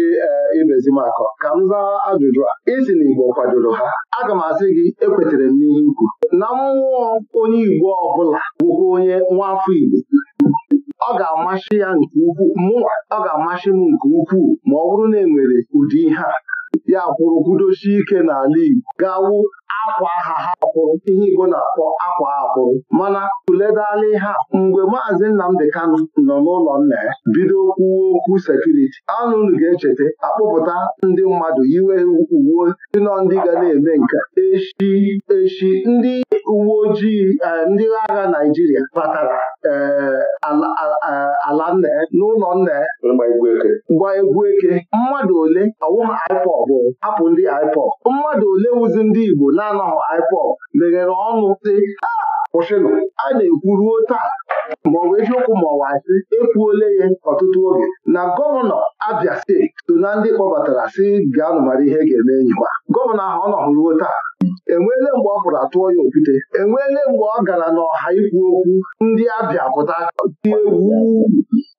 ibezimakọ ka m zaa ajụjụ a isi na igbo kwadoro ha aga m asị gị ekwetere m n'ihe ikwu na mmụọ onye igbo ọbụla ọbụla bụkwa onye nwa afọ Igbo ọ ga-amasị ya nke ukwuu m nke ukwuu ma ọ bụrụ na e nwere ụdị ihe a ya kwụrụ kwudosie ike n'ala Igbo gaawụ akwa aha ha akwụrụ ihe Igbo na-akpọ akwa akwụrụ mana tụledala ha mgbe maazị Nnamdị Kanụ nọ n'ụlọ nna ya bido kwuo okwu sekuriti anụnụ ga-echeta akpụpụta ndị mmadụ yiwe uwe nọ ndị ga na-eme nke echi echi ndị uwe ojii e, ndị agha Naịjirịa batara e, ala nna n'ụlọ nna gba egwu eke mmadụ ole ha IPOB bụ hapụ ndị IPOB mmadụ ole wụzi ndị Igbo na na IPOB meghere ọnụ dị ah, kwụsịnụ a na-ekwuruo taa maọbụ eziokwu maọbụ sị ekwuole ya ọtụtụ oge na gọvanọ Abia steeti so na ndị kpọbatara si gaanụ mara ihe ga-eme enyiwa gọvanọ ahụ ọ ruo taa enweele mgbe ọ pụrụ atụọ ya okwute enweele mgbe ọ gara n'ọha ikwu okwu ndị abịa pụta dị egwu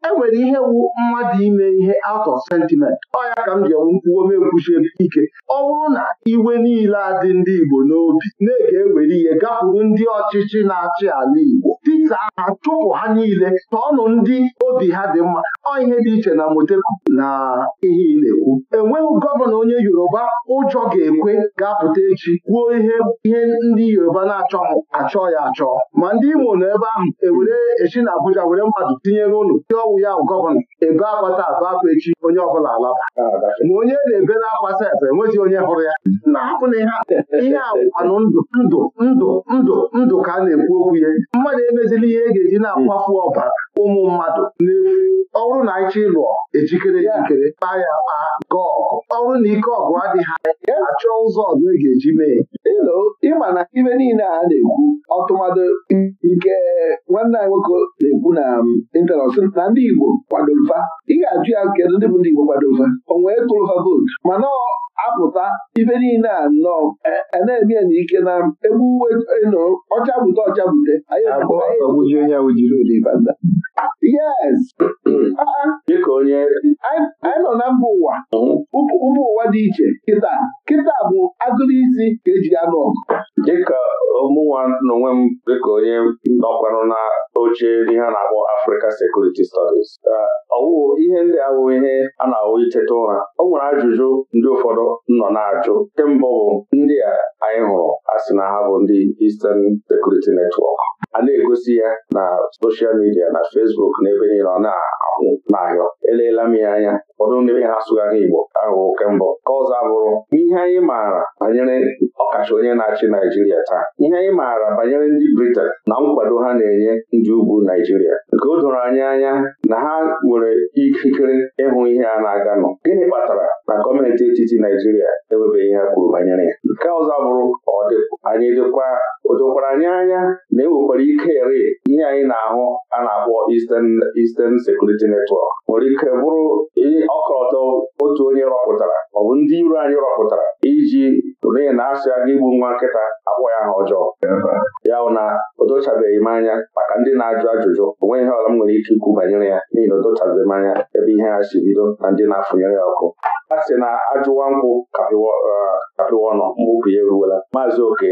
enwere ihe wu mmadụ ime ihe out of sentiment ọ ya ka m ji enwe mkwuo mekwuchi ike ọ bụrụ na iwe niile adị ndị Igbo n'obi na-ege ewere ihe gakwuru ndị ọchịchị na-achị ala Igbo Jizọs ahụ chụpụ ha niile ọnụ ndị obi ha dị mma ọ ihe dị iche na moteku na ihe ị na-ekwu enweghị gọvanọ onye Yoruba ụjọ ga-ekwe ga-apụta echi kwuo ihe ihe ndị Yoruba na-achọ achọ ya achọ ma ndị Imo nọ ebe ahụ ewere echi na Abuja were mmadụ tinyere ụlọ ndị ọwụ ya gọvanọ ebe agbata abụ akwa echi onye ọbụla alaba ma onye na na akwa sef enweghị onye hụrụ ya na-ahapụna ihe ihe awụkwanụ ndụ ndụ ndụ ndụ ndụ ka a na-ekwu okwu ya mmadụ emezi dịrị ihe e ga-eji na-akwafu hmm. ọbara ụmụ mmadụ n'efu ọ bụrụ na anyị chọ ịlụọ ejikere ejikere kpaa ya kpaa gọọ ọgụ ọ bụrụ na ike ọgụ adịghị anya achọ ụzọ ọzọ e ga-eji mee elo ịma na ibe niile a na-ekwu ọtụmadụ nke nwanne anyị nwoke na-ekwu na ịntanọt um, na ndị Igbo kwadofa ị ga-ajụ ya kedu ndị bụ ndị Igbo kwadofa o nwee tụrụfa vootu mana apụta ibe niile a nnọọ e, e, na-eme ya ike na um, egbuwe e, ọcha bute ọcha bute anyị ọgbụji onye ahụ jiri ụdị banda onye anyị nọ na mba ụwa mba ụwa dị iche kịta kịta bụ agụrụ isi ka eji anụ ọgụ dịka mụnwa n'onwe m dịka onye nọkwanụ na oche ihe a na-akpọ Africa Security Studies ọwụ ihe ndị ahụ ihe a na-awụ iteta ụra o nwere ajụjụ ndị ụfọdụ nọ na-ajụ nke mbụ bụ ndị a anyị hụrụ a na ha bụ ndị Eastern Security Network a na-egosi ya na soshal midia na fesbuk na ebe niile ọ na-ahụ n'ahịa eleela m ya anya ụfọdụ ndị ha Igbo ahụ oke mbụ ka ọzọ abụrụ ihe anyị maara banyere ọkacha onye na-achị Naijiria taa ihe anyị maara banyere ndị Britain na nkwado ha na-enye ndị ugwu Naijiria nke o doro anyị anya na ha nwere ikikere ịhụ ihe a na-aganụ gịnị kpatara na gọọmenti etiti Naijiria enwebeghị ha kwuru banyere ya nke ọzọ bụrụ Eastern Security Network nwere ike bụrụ ọkọlọtọ otu onye rọpụtara ọ bụ ndị iro anyị rọpụtara iji n'ihi na asị aga igbu nwa nkịta akpọ ya ha ọjọọ ya bụ na o dochabeghị m anya maka ndị na-ajụ ajụjụ o nweghị ihe ọla m nwere ike ikwu banyere ya n'ihi na o m anya ebe ihe ha si bido na ndị na-afụnyere ya ọkụ a sị na ajụwa nkwụ kapịwa eh, ọnụ mgbupụ ya eruwela maazị oke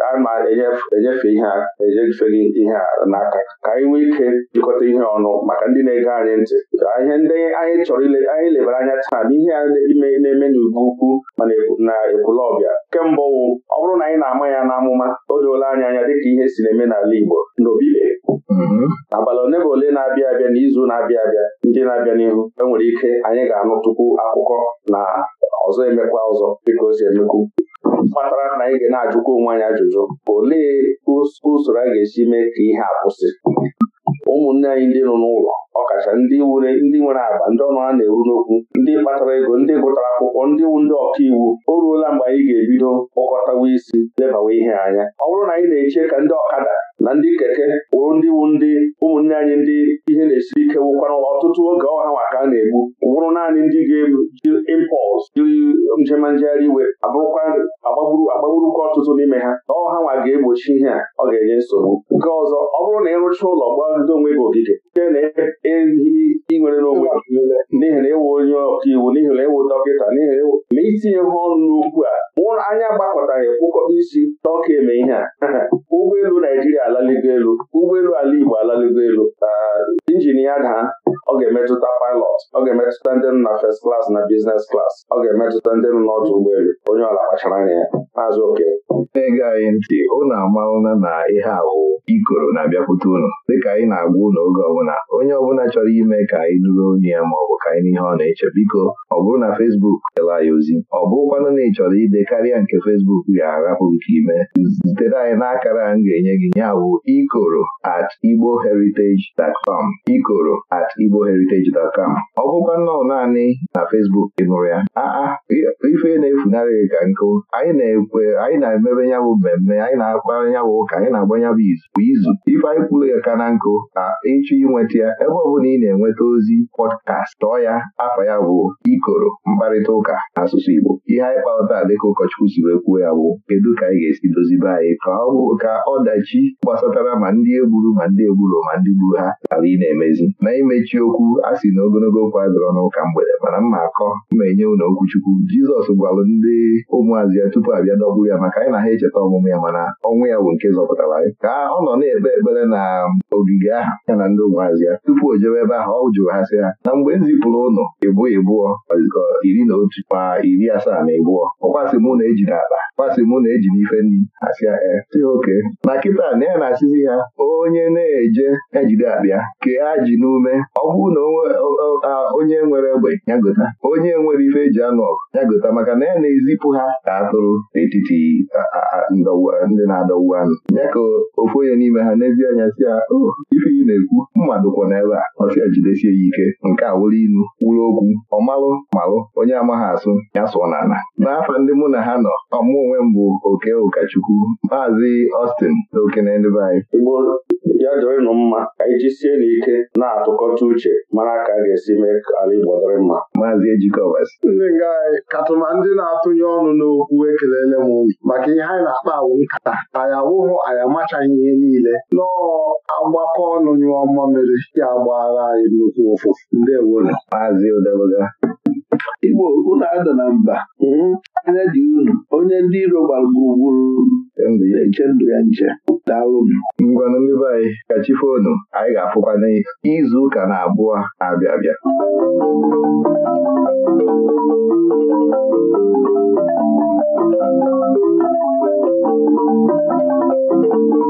ama na-enyefe ihe a ejefeli ihe a n'aka ka anyị nwee ike jikọta ihe ọnụ maka ndị na-ege anyị ntị ihe ndị anyị chọrọ anyị lebara anya taa bụ ihe ime na-eme n'ugwu ukwu mana na ekwulọbịa kemgbe wụ ọ bụrụ na anyị na-ama ya n'amụma o doola anya anya dịka ihe si na-eme n'ala Igbo n'obile mm-hmm. abalị ole ma ole na-abịa abịa n'izu na-abịa abịa ndị na-abịa n'ihu enwere ike anyị ga-anụ tupu akwụkwọ na ọzọ emekwa ọzọ dịka o si emekwu kpatara na anyị ga na-ajụkwa onwe anyị ajụjụ olee usoro a ga-esi mee ka ihe a kwụsị ụmụnne anyị ndị nọ n'ụlọ ọkacha ndị were ndị nwere agba ndị ọnụra na-eru n'okwu ndị kpatara ego ndị gụtara akwụkwọ ndị wu ndị ọka iwu o ruola mgbe anyị ga-ebido kpọkọtawa isi lebawa ihe anya ọ bụrụ na anyị na-eche ka ndị ọkada na ndị keke wụrụ ndị wu ndị ụmụnne anyị ndị ihe na esi ike wụkwara ọtụtụ oge ọha ka a na-egbu wụrụ naanị ndị ga-eji impọls jiri njema um, njegharị iwe abụrụkwa agbagburu agbagburukwa ọtụtụ n'ime ha na ọha nwa ga-egbochi ihe a ọ ga-enye nsogbu nke ọzọ ọ bụrụ na ịrụcha ụlọ gbado onwe gị ogige nke na-ehi inwere n'onwe n'ihi na ịwụ e onye ọkaiwu n'ihi na ịwụ e dọkịta n'ihi na ịwụ e ma itinye ha ọnụ first class na business class ọ ga-emetụta ndị nọ n'ọdụ ụgbọelu onye ọla kpachara anya ya maazị oke na anyị ntị unu amalụna na ihe awụ ikoro na-abịakwute unu dịka anyị na-agwa ụlọ oge ọbụla onye ọbụla chọrọ ime ka anyị nụrụ onye ya ma ọ bụ ka anyị n'ihe ọ na-eche biko ọ bụrụ na fesbuk dela anyị ozi ọ bụrụkwanụ na ị chọrọ ide karịa nke fesbuk ga-arapụ nke ime zitere anyị n'akara m ga-enye gị ya bụ ikoro at igbo igboheritage.com ikoro at igbo igboheritage.com ọ bụkwa nnọọ naanị na fesbuk ị nụrụ ya aa ah, ah, ife na-efunarị gị ka nkụ anyị na-ekwe anyị na-emebe ya bụ mmemme anyị na-akpara ya bụ ụka anyị na-agba ya bụ izu izu ife anyị kwuru ya ka na nkụ na ịchọ inweta ya ebe ọ bụla ị na-enweta ozi pọdkast tọọ ya afọ ya bụ ikoro mkparịta ụka asụsụ Igbo ihe anyị kpalata dịka ụkọchukwu si wee kwuo ya bụ kedu ka anyị ga-esi dozibe anyị ka ọ bụ ka ọdachi gbasatara ma ndị egburu ma ndị egburu ma ndị gburu ha ghara ị na-emezi na imechi okwu a sị na ogologo okwu adịrọ n'ụka mgbede mana mma akọ ma enye unu okwuchukwu Jizọs gwalụ ndị ụmụazị ya tupu abịa dọgburu ya maka anyị na ha echeta ọmụmụ ya mana ọnwụ ya bụ nke zọpụtara anyị ka ọ nọ na-ekpe ekpere na ogige ahụ ya na ndị ụmụazị ya tupu o jewe ebe ahụ ọ jụrụ ha sị ha na mgbe m zipụrụ ụnụ ịbụ ịbụọ iri na otu ma iri asaa na ịbụọ ọkwasị mụ na eji n'akpa kwasị mụ na eji n'ife e nri asị ya oke na kịta na ya na-asịzi ha onye na-eje ejide akpịa kee ajị n'ume ọ bụrụ na onye nwere egbe ya onye nwere ife eji anụ ọgụ ya gota maka na ya e na-ezipụ ha ka atụrụ n'etiti ndị na-adọwu anụ ya ka ofu onye n'ime ha n'ezi anya si ya oh, ife ị na-ekwu mmadụ kwọ n'ebe a ọsịa jidesie ya ike nke a wụrụ inu wụrụ okwu ọmalụ malụ onye amaghị asụ ya sụọ n'ala n'afọ ndị mụ na ha nọ ọmụ onwe m bụ oke ụkọchukwu maazị Austin na okene ndị be anyị ya ịnụ mma ka anyị n'ike na-atụkọta uche mara ka a ga-esi mee ka ala Igbo dịrị mma mma maazị ejikọbas ndị nga katụma ndị na-atụnye ọnụ n'okwu ekelele m maka ihe anyị na-akpa awụ nkata anyị awụghụ anyị amachaghị ihe niile nọọ agbakọ ọnụ nyụọ mere ya agbaghara anyị nnukwu ụfụ. ndị ewonu maazị ụdebụga Igbo unu ada na mba mhm. anya dị unu onye ndị iro gbagburu eche ndụ ya nche daalụnụ ngwanụ ndị anyị ka chifonu anyị ga-afụkwa n'izu ụka na abụọ abịa abịa Thank you.